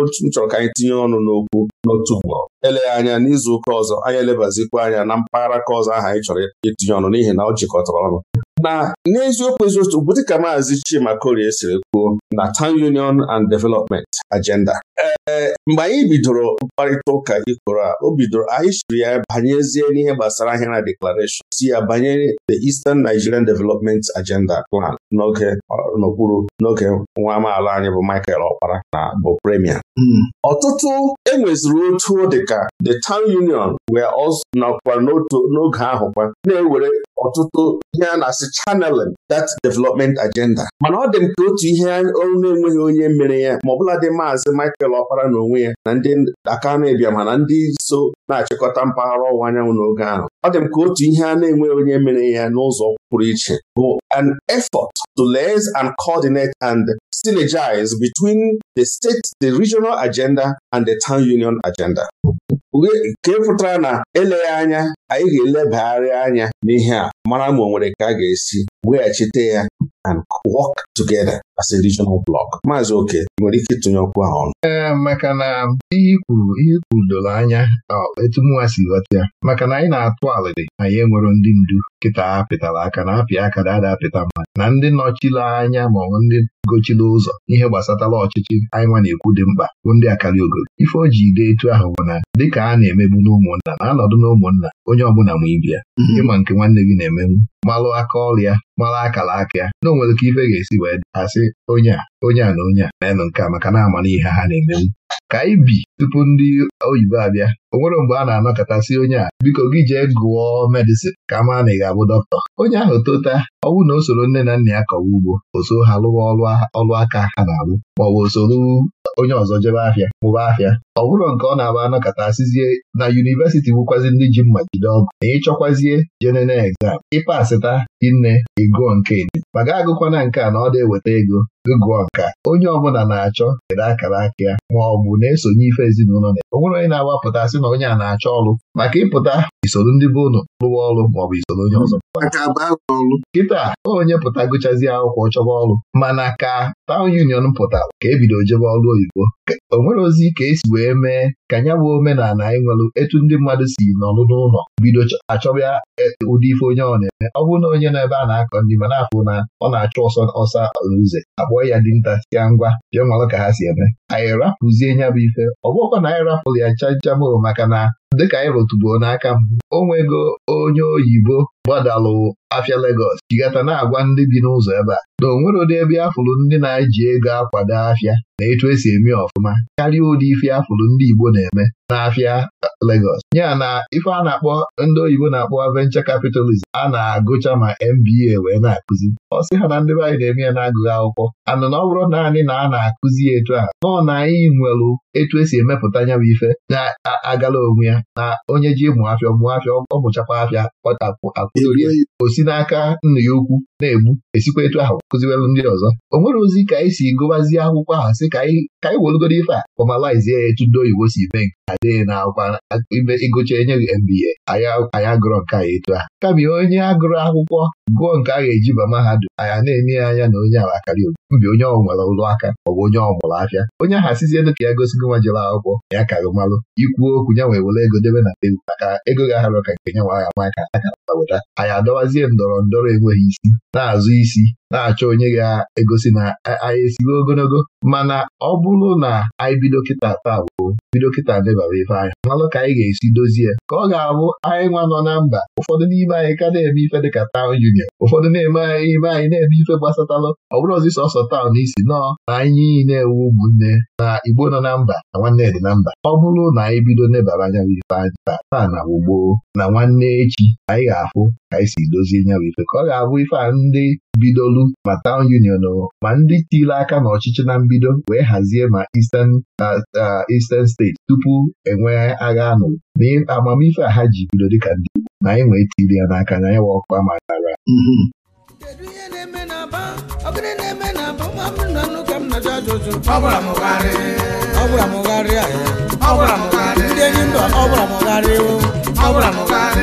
otu m chọrọ ka anyị tinye ọnụ n'okwu n'otu mgbọrọ eleghị anya n'izu ụka ọzọ anyị elebazikwa anya na mpaghara ka ọzọ aha anyị chọrọ itinye ọnụ n'ihi na ọ jikọtara ọnụ na n'eziokwu eziokwu bụ dịka maazi Chima Korie siri kwuo na Town Union and Development Agenda ee mgbe anyị bidoro mkparịta ụka ikoro a o bidoro anyị siri ya banyezie n'ihe gbasara ahịa na declaration si ya banyere the Eastern Nigerian Development Agenda Plan n'oge n'okpuru n'oge nwa amaala anyị bụ Michael Ọkpara na bụ premier hmm. ọtụtụ enweziri otu dịka the town union wee nọkwa n'otu n'oge ahụ kwa na-ewere ọtụtụ ihe a na-asị channeling that development agenda mana ọ dị m ka otu ihe ọrụ na-enweghị onye mere ya ma ọbụla dị maazị Michael Ọkpara na onwe ya na ndị aka na-ebịa ndị so na-achịkọta mpaghara ọwụwa anyanwụ n'oge ahụ ọ dị m ka otu ihe a na-enweghị onye mere ya n'ụzọ pụrụ iche bụ an effort to lee organize and coordinate and synergize between the state, the regional agenda and the town union agenda. nke pụtara na eleghị anya anyị ga-elebagharị anya n'ihe a mara ma o nwere ka a ga-esi weghachite ya and work together as a regional block. Maazị Oke nwere ike ịtụnye ọkụ ahụ ọnụ. Ee, eh, maka na ihe ikwuru ihe ikwuru doro anya etu si ghọta ya maka na anyị na-atụ alịrị anyị enwero ndị ndu nkịta ha pịtara aka na apịa aka na ada apịta mmadụ na ndị nọchiri anya ma ọ bụ ndị gochiri ụzọ ihe gbasatara ọchịchị anyị nwa na-ekwu dị mkpa bụ ndị akarị ogolo ife o ji etu ahụ bụ na dịka a na-emebu n'ụmụnna na anọdụ n'ụmụnna onye ọbụla ma ibi ya mm-hmm. ịma nke nwanne gị na emegbu malụ aka ọrịa mara akara aka a, na onwere ike ife ga-esi wee asị onye a onye a na onye a na nke a maka na-amara ihe ha na-emenwu ka anyị bi tupu ndị oyibo abịa o nwere mgbe a na-anọkọtasị onye a biko gị jee gụọ medịsịn ka a na ị ga-abụ dọkịta onye ahụ tota ọnwụ na o soro nne na nna ya kọwa ugbo Oso ha lụwa ọlụ aka ha na-alụ maọbụ o onye ọzọ jebe ahịa mụba ahịa ọ bụrụ nke ọ na abụ anọkọtasizie na yunivesiti bụkwazi ndị ji mma jide ọgụ na ịchọkwazie jenene egzam ịpasịta nne ịgụọ nke ma ga agụkwana nke a na ọ dị eweta ego ịgụ ọka onye ọbụla na-achọ kere akara aka ya ma ọ bụ na-esonye ife ezinụlọ na o nwere onye na-agbapụta sị na onye a na-achọ ọrụ maka ịpụta isoro ndị be ụnụ lụwa ọrụ ma ọ bụ isoro onye ọzọ kịta onye pụta gụchazie akwụkwọ chọba ọrụ mana ka taụn union pụtara ka ebido jebe ọrụ oyibo o nwere ozi ka esi wee mee ka ya bụ omenala anyị e nwere etu ndị mmadụ si n'ọrụ n'ụlọ bido achọba e, ụdị ife onye ọ na-eme ọ bụrụ na onye nọ ebe a na-akọ ndị ma na-afụ na ọ na-achụ ọsọ ọsa ụzọ kpọọ ya dị nta ngwa bịa malụ ka ha si eme anyị rapụzie bụ ife ọ bụghọkwa na anyị rapụrụ ya chanchabụ maka na dịka anyị rụtụbuo n'aka mbụ o nwego onye oyibo gbadalụ afịa Legọs jigata na-agwa ndị bi n'ụzọ ebe a na o nwere ụdị ebe afụrụ ndị na-eji ego akwado afịa na etu esi eme ọfụma karịa ụdị ife afụrụ ndị Igbo na-eme n'afịa Legọs ya na ife a na-akpọ ndị oyibo na-akpọ venture capitalism a na-agụcha ma MBA wee na-akụzi ọ sị ha na ndị be anyị na-eme ya na-agụghị akwụkwọ anụ na ọ bụrụ naanị na a na-akụzi etu a nọọ na anyị nwere etu esi emepụta nya bụ ife na-agala onwe ya na onye ji ịmụ afịa mụọ afịa ọ mụchakwa afịa kpọtapụ akụzirie o si n'aka nna ya ukwu na-egbu esikwa etu ahụ kụziwelụ ndị ọzọ o nwere ozi ka anyị si gụbazie akwụkwọ ahụ si ka anyị welugoro ife a fọmalizie ya etu ndị oyibo si mee nke adịghị na akwụkwọ ime ịgụcha enye gị MBA anyị agụrọ nke anyị etu a kama onye agụrụ akwụkwọ gụọ nke a ga-eji ba mahadum anya na-enye ya anya na onye ahụ akarị mbi onye ọ nwere ụlọ aka ọ bụ onye ọmụrụ afịa onye ahụ asizielu ka ya gosigo nwa jere akwụkwọ ya kaghị malụ ikwu okwu ya nwee were ego ego debe na tebụl maka ego ga-ahara ka nke nwa aha aka akara weta anyị adọwazie ndọrọ ndọrọ enweghị isi na-azụ isi na-achọ onye ga-egosi na anyị esigo ogologo mana ọ bụrụ na anyị bido kịta taa bụ bido kịta debara ife anyị malụ ka anyị ga-esi dozie ka ọ ga-abụ anyị nwa nọ na mba ụfọdụ n'ime anyị ka na-eme ife dịka taụn junior ụfọdụ na-eme anyị ime anyị na-eme ife gbasatalụ ọ bụrụ ọzi sọsọ taụn isi nọọ na anyị niile ewu ụmụnne na igbo nọ na mba na nwanne dị na mba ọ bụrụ na anyị bido nebara nyawa ife anyị taa taa na ugbo na nwanne echi anyị ga afụ ka anyị si dozie nyawa ife ka ọ ga-abụ ife a ndị bidolu ma Town Union o ma ndị tile aka n'ọchịchị na mbido wee hazie ma Eastern Eastern steeti tupu enwee agha anụ na a ha ji bido dị dịka ndị Igbo na anyị nwee tili ya n'aka na anyị wa ma nara ndị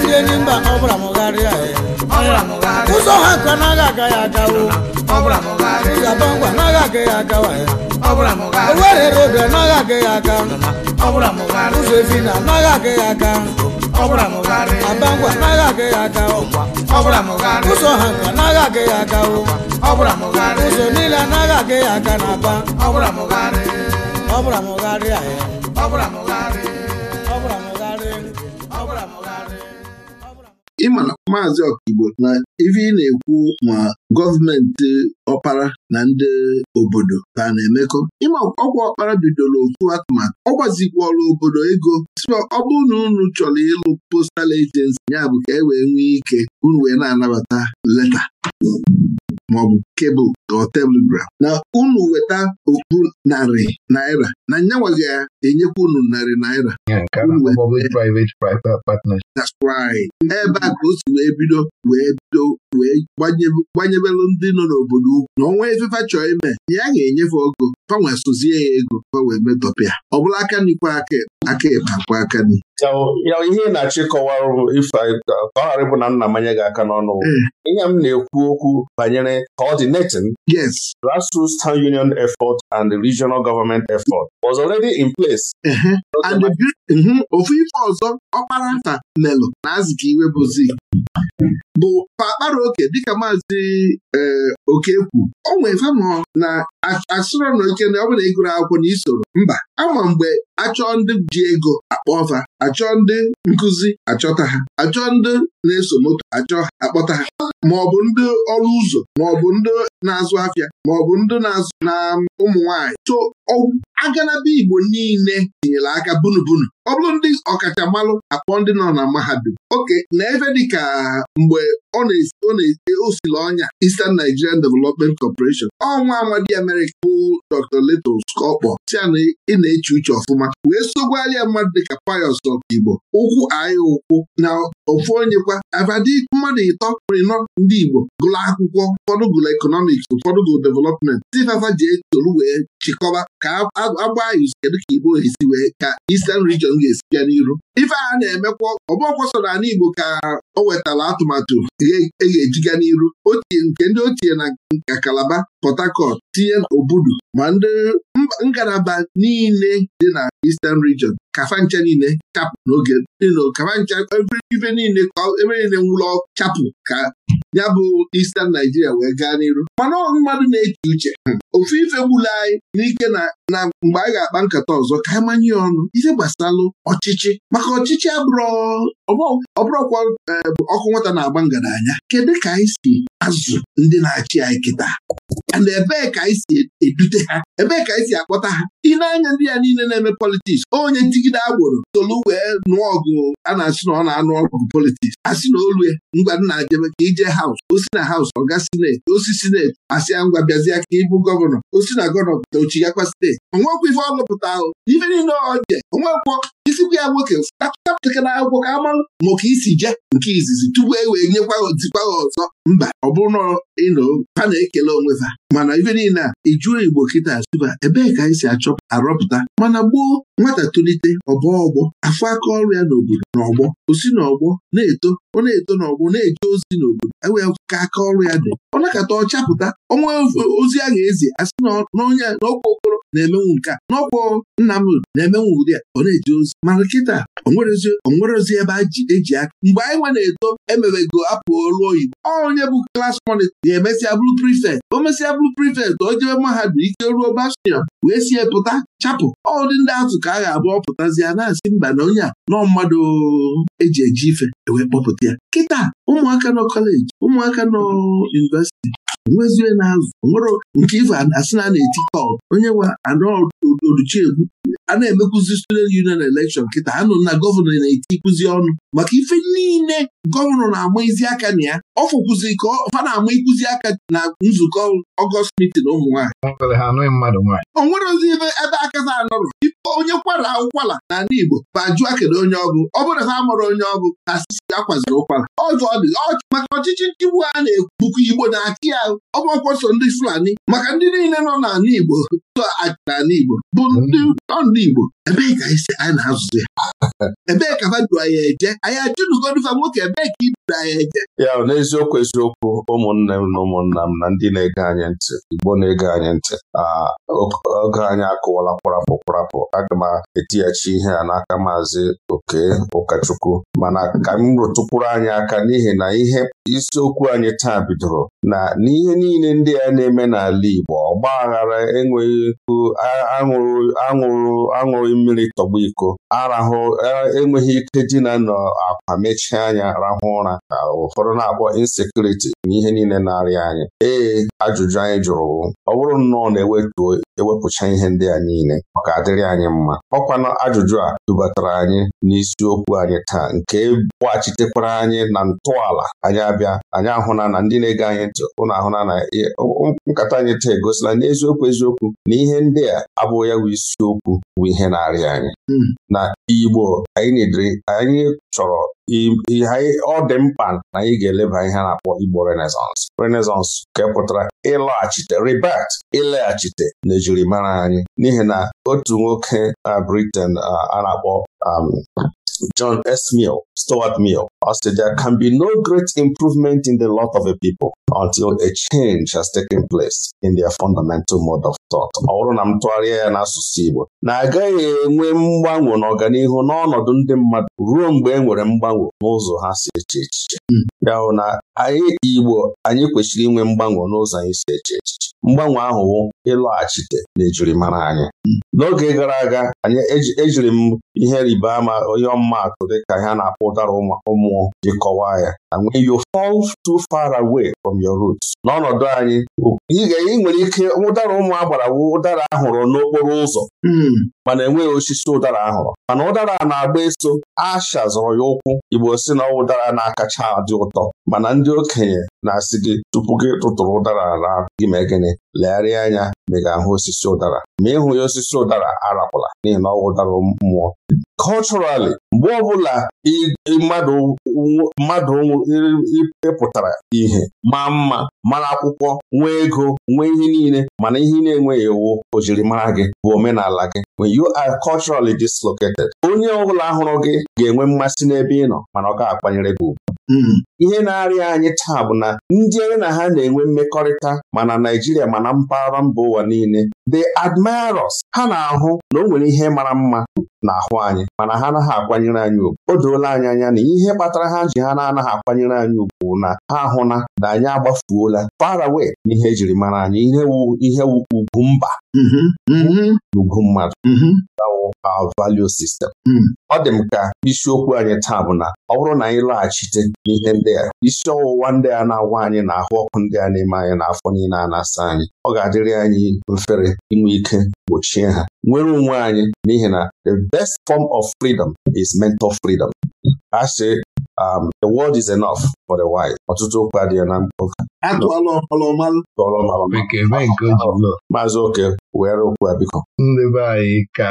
ndị enyi mba ọ bụla mụgharịa ụzọ ha nkwa n'agha aga ya agawo ụzaba ngwa anaghị aga ya agawa ya owerere obi anaghị aga ya aga ụzọ efi na anaghị aga ya aga aba ngwa aga ya agawo ụzọ ha nke anaghị aga ya agawo ụzọ niile anaghị aga ya aga na aba ọ bụla mụgharịa ya ma na maazị Okigbo na ife ị na-ekwu ma gọọmenti ọkpara na ndị obodo ka na-emekọ ịma ọkwa ọkpara bidoro otu atụmatụ ọ gwazikwala obodo ego sịa ọ bụrụ na unu chọrọ ịlụ postal agency ya bụ ka e wee nwee ike unu wee na-anabata leta maọbụ kebụl or telegram na unu weta okpu narị naira na nyanwa ga-enyekwa unu narị naira ebe a ka o si wee bido wee bido wee gbanyebelụ ndị nọ n'obodo ugwu na ọnwa efefa chọọ ime ya ga-enyefe ọgụ fanwe sozie ya ego fanwe metọpịa ọ bụla aka nikwa aka aka akwa aka ni ya ihe na-achọ ịkọwara ife ka ọ ghara ịbụ na nna manye gị aka n'ọnụ eh. ihe m na-ekwu okwu banyere coordinating yes grassroots town union effort and the regional government effort was already in place mhm, ofu ife ọzọ ọkpara nta melụ na azụ iwe bụzi bụ pakpara oke dịka maazị e, okekwu o nwee fanọ na asụrụ na oke na ọ ịgụrụ akwụkwọ na isoro mba ama mgbe achọọ ndị ji ego akpọ ọfa achọọ ndị nkụzi achọta ha achọọ ndị na-eso moto achọ akpọta ha ma ọ bụ ndị ọrụ ụzọ ma ndị na-azụ afịa ma ọ bụ ndị na-azụ na ụmụ nwaanyị so agalaba Igbo niile tinyere aka bunubunu ọ bụrụ ndị ọkachamalụ akpọ ndị nọ na mahadum oke na ebe dịka mgbe ọ na-osiri ọnya Eastern Nigerian Development Corporation ọnwa amadi America bụ Dr. Letos ka si na ị na-eche uche ọfụma wee ya mmadụ dịka Pius Ọkaigbo ụkwụ anyị ụkwụ na ofu onye kwa abadi mmadụ ịtọ ịnọ ndị Igbo gụrụ akwụkwọ ụfọdụ gụrụ ekọnọmik eletrọniks ụfọdụ bụ development tifafa ji esolu wee chịkọba ka agba izu kedu ka igbo esi wee ka isten region ga-esi bịa n'iru ife a na-emekwa ọbọkwọ soro ala igbo ka o nwetara atụmatụ e, e ga-eji ga n'iru otie nke ndị ochie na nka kalaba Port tinye obudu ma ndị ngalaba niile dị na Eastern region kafancha niile chapụ n'oge kafancha ebe niile ka ebe niile nwụlọ chapụ ka ya bụ Eastern Naijiria wee gaa n'iru mana ọ mmadụ na-eche uche hmm, ofu ife gbula anyị n'ike na mgbe a ga-akpa nkata ọzọ ka anyị manye ọnụ ihe gbasalụ ọchịchị maka ọchịchị ọbụrụkwa e, ọkụ nwata na-agba ngaranya kedu ka anyị si azụ ndị na-achị anyị kịta and ebee ka anyị si edute ha ebee ka anyị si akpọta ha ị na-anya ndị ya niile na-eme politiks onye ntigide agboro tolu wee nụọ ọgụ a na-asị na ọ na-anụ ọgụ politiks asị na olu ya ngwa nna jebe ka ije haus osi na haus ọga sineti osi sineti asị ya ngwa bịazịa ka ịbụ gọvanọ gọvanọ ochi na gọvanọ pụta ochi ya kwa steeti onwekwa ife ọlụpụta ahụ ife niile oje onwekwọ isikwu ya nwoke na akwụkwọ ka amalụ maka isi je nke izizi tupu e wee nyekwa ozikwa ha ọzọ mba ọ bụrụ ịnụ ha na-ekele onwe ha mana ife niile a ịjụọ Igbo kịta asụba ebee ka anyị si achọ arọpụta mana gbuo nwata tolite ọbọ ọgbọ afọ aka ọrụ ya n'obodo n'ọgbọ osi n'ọgbọ na-eto ọ na-eto n'ọgbọ na-eje ozi n'obodo ewee ka aka ọrụ ya dị ọ nakọta ọ chapụta ọnwa ozi a ga-ezi asị na onye na-emenwu nke a n'ọkwọ Nnamdị na-emenwu ụdị a ọ na-eji ozi mara kịta onwere ozi ebe eji aka mgbe anyị nwe na-eto emewego apụ ọrụ oyibo onye bụ klas mọnịta na emesịa bụrụ prifekt o mesịa bụrụ prifekt o jebe mahadum ike ruo bastion wee sie pụta chapụ ọdị ndị atụ ka a ga abụọ ọ ya na-asị mba na onye a nọọ mmadụ eji eji ife ewee kpọpụta ya kịta ụmụaka nọ kọleji ụmụaka nọ yunivesiti nwezie na azụ nwere nke ife asị na na-eti kọl onye nwe egwu. a na-emekwuzi student union election kịta ha nọ na gọvanọ na-etikwuzi eti ọnụ maka ife niile gọvanọ na-ama izi aka na ya ọ fụkwuzi ka fa na-ama ikuzi aka na nzukọ ọgọst mitin ụmụ nwaanyị o nwerozi ebe ebe akaza anọrọ ife onye kwara ụkwala ala Igbo ma jụọ kedu onye ọgụ ọ bụrụ na ha mụrụ onye ọgụ na asịsị akwaziri ụkwala ọzọ ọ dị maka ọchịchị nchịgbu a na-egbukọ Igbo na-achị ya ọgbọkwọsọ ndị Fulani maka ndị niile nọ n'ala Igbo so achị n'ala Igbo bụ ndị Igbo ebe ka anyị anyị na-azụzi ebee ka ha anyị eje anyị ajụrụgodifa nwoke ebee ka iduru anyị eje ya n'eziokwu eziokwu ụmụnne m na ụmụnna m na ndị na-ege anyị ntị igbo na-ege anyị ntị oge anyị akụwala kwarapụ kwarapụ aga m etighachi ihe a n'aka maazị oke ụkọchukwu mana ka m rụtụkwuru anyị aka n'ihi na ihe isiokwu anyị taa bidoro na n'ihe niile ndị a na-eme n'ala Igbo ọgba aghara enweghị aṅụrụ aṅụrụ mmiri tọgbu iko arahụ ahụ e, enweghị ike dina nọ akwa mechie anya rahụ ụra ka ụfọdụ na-akpọ insekuriti na ihe niile na-arịa anyị ee ajụjụ anyị jụrụ ọ bụrụ nnọọ na-ewetuo ewepụcha ihe ndị a niile ọ ka adịrị anyị mma ọkwanụ ajụjụ a dubatara anyị n'isiokwu anyị taa nke gbachitekwara anyị na ntọala anyị abịa anyị ahụna na ndị na-ege anyị ntị ụnụ ahụna na nkata anyị taa egosila n'eziokwu eziokwu na ihe ndị a abụghị ya bụ isiokwu bụ ihe na-arịa anyị hmm. na Igbo anyị anyị chọrọ ọ dị mkpa na anyị ga-eleba ihe a na-akpọ Igbo Renaissance Renaissance ka pụtara ịlọghachite ribat ịlaghachite na ejirimara anyị n'ihi na otu nwoke na Britain a na-akpọ Um, John S. Mill, Stuart Mill, ọ there can be no great improvement in the lot of a people until a change has taken place in their fundamental mode of thought. Ọ bụrụ na m tụgharịa ya n'asụsụ Igbo na agaghị enwe mgbanwe n'ọganihu n'ọnọdụ ndị mmadụ ruo mgbe e nwere mgbanwe n'ụzọ ha si eche echiche hmm. Ya hụ na anyị Igbo anyị kwesịrị inwe mgbanwe n'ụzọ anyị si eche echiche mgbanwe ahụ bụ ịlọghachite ejirimara anyị n'oge gara aga anyị ejiri m ihe rịba ama onye ọmụmaatụ dịka ha na-akpọ ụdara ụmụ ji kọwaa ya when you fall too far away from your root. n'ọnọdụ anyị ị nwere ike ụdara ụmụ agbara wụ ụdara ahụrụ n'okporo ụzọ hmm. mana enweghị osisi ụdara ahụrụ mana ụdara na-agba eso ashazụrụ ya ụkwụ Igbo si na ọwụ dara akacha adị ụtọ mana ndị okenye na-asị gị tupu gị tụtụrụ ụdara ala gị mee gịnị legharịa anya ma ahụ osisi ụdara ma ịhụ ya osisi ụdara arakwala n'ihi na ọ ụdara mmụọ Culturally, mgbe ọbụla mmadụ ịpụtara ihe maa mma mara akwụkwọ nwee ego nwee ihe niile mana ihe na-enweghị ewu ojirimara gị bụ omenala gị when you are culturally dislocated onye ọbụla hụrụ gị ga-enwe mmasị n'ebe ị nọ mana ọ ga-akwanyere gị ugwu ihe na-arịa anyị taa bụ na ndị na ha na-enwe mmekọrịta ma na Naijiria ma na mpaghara mba ụwa niile they admire ha na-ahụ na o nwere ihe mara mma na-ahụ anyị mana ha anaghị akwanyere anyị ugwu o doola anyị anya na ihe kpatara ha ji ha na-anaghị akwanyere anyị ugwu na ha ahụna na anyị agbafuola far na ihe ejiri mara anyị ihe wu ihe wu ugwu mba ugwu mm-hmm. mm-hmm. mmadụ mm-hmm. our value system. Mm. ọ dị m ka isiokwu anyị taa bụ na ọ bụrụ na anyị lọghachite n'ihe ndị isi ọwụwa ndị a na-agwa anyị na ahụ ọkụ ndị a na-eme anyị na afọ niile a na-asa anyị ọ ga-adịrị anyị mfere inwe ike gbochie ha nwere onwe anyị n'ihi na the best form of freedom is mental freedom a sị Um, the world is enough for the white. Ọtụtụ okwu adịghị na mkpụka. Maazị Oke were okwu a biko. anyị ka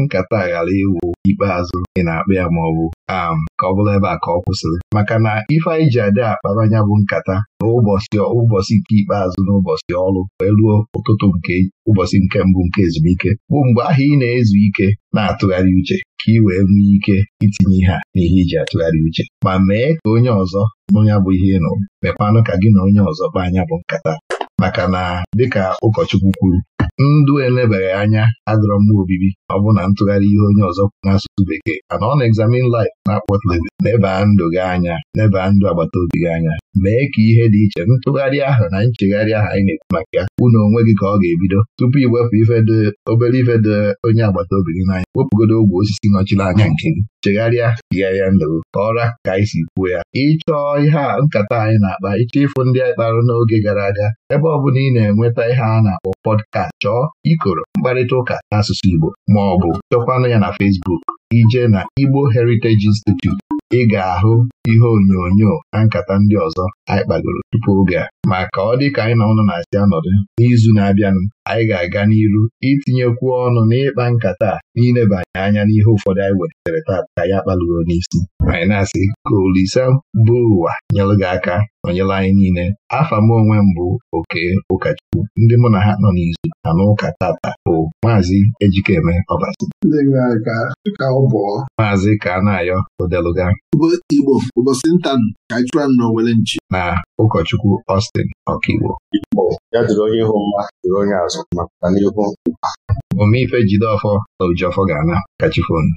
nkata ghara iwu ikpeazụ ị na-akpa ya ma ọ bụ am um, ka ọ bụla ebe a ka ọ kwụsịrị maka na ife anyị ji adị akparanya bụ nkata n'ụbọchị ụbọchị nke ikpeazụ n'ụbọchị ọrụ wee ruo ụtụtụ nke ụbọchị nke mbụ nke ezumike bụ mgbe ahụ ị na-ezu ike na-atụgharị uche ka ị wee nwee ike itinye ihe a n'ihe iji atụgharị uche ma mee ka onye ọzọ onye bụ ihe ịnụ, nụrụ mekwanụ ka gị na onye ọzọ kpa anya bụ nkata maka na dịka ụkọchukwu kwuru ndụ elebeghị anya adọrọ mma obibi ọ bụ na ntụgharị ihe onye ọzọ n'asụsụ bekee mana ọ na-examine life na-akpọ nebaa ndụ gị anya nebaa ndụ agbata obi gị anya mee ka ihe dị iche ntụgharị ahụ na nchegharị ahụ anyị na-ekwu maka ya unu onwe gị ka ọ ga-ebido tupu iwepụ ife obere ife onye agbata obi gị n'anya wepụgodo ogwe osisi nọchiri anya nke gị chegharịa chigharịa ndụ ọra ka anyị si kwuo ya ịchọọ ihe a nkata anyị na-akpa ịchọ ịfụ ndị anyị kpara n'oge gara aga ebe ọ bụla ị na-enweta ihe a na-akpọ pọdkast chọọ ikoro mkparịta ụka n'asụsụ Igbo ma ọ bụ chọkwanụ ya na Fesbuk ije na Igbo Heritage Institute ị ga-ahụ ihe onyonyo na nkata ndị ọzọ anyị kpagoro tupu oge a ma ka ọ dị ka anyị na ụnụ na-asị anọdụ n'izu na-abịanụ anyị ga-aga n'iru itinyekwu ọnụ n'ịkpa nkata n'ilebanye anya n'ihe ụfọdụ anyị wetere ka ya kpalụro n'isi anyị na-asị ka Olise bụ ụwa nyelụ gị aka nọnyere anyị niile afa m onwe m bụ oke ụkọchukwu ndị mụ na ha nọ n'izu na n'ụka tata bụ maazị Ejikeme Ọbasi maazị ka a na-ayọ odeluga Igbo ụbọchị nta ka anyị chụọ n'owere nchi ma ụkọchukwu Austin Ọkaiwo ya dịrị onye ihu mma dịrị onye azụ maka n'ihu omife Jideọfọ na Ujeọfọ ga-ana kachifonu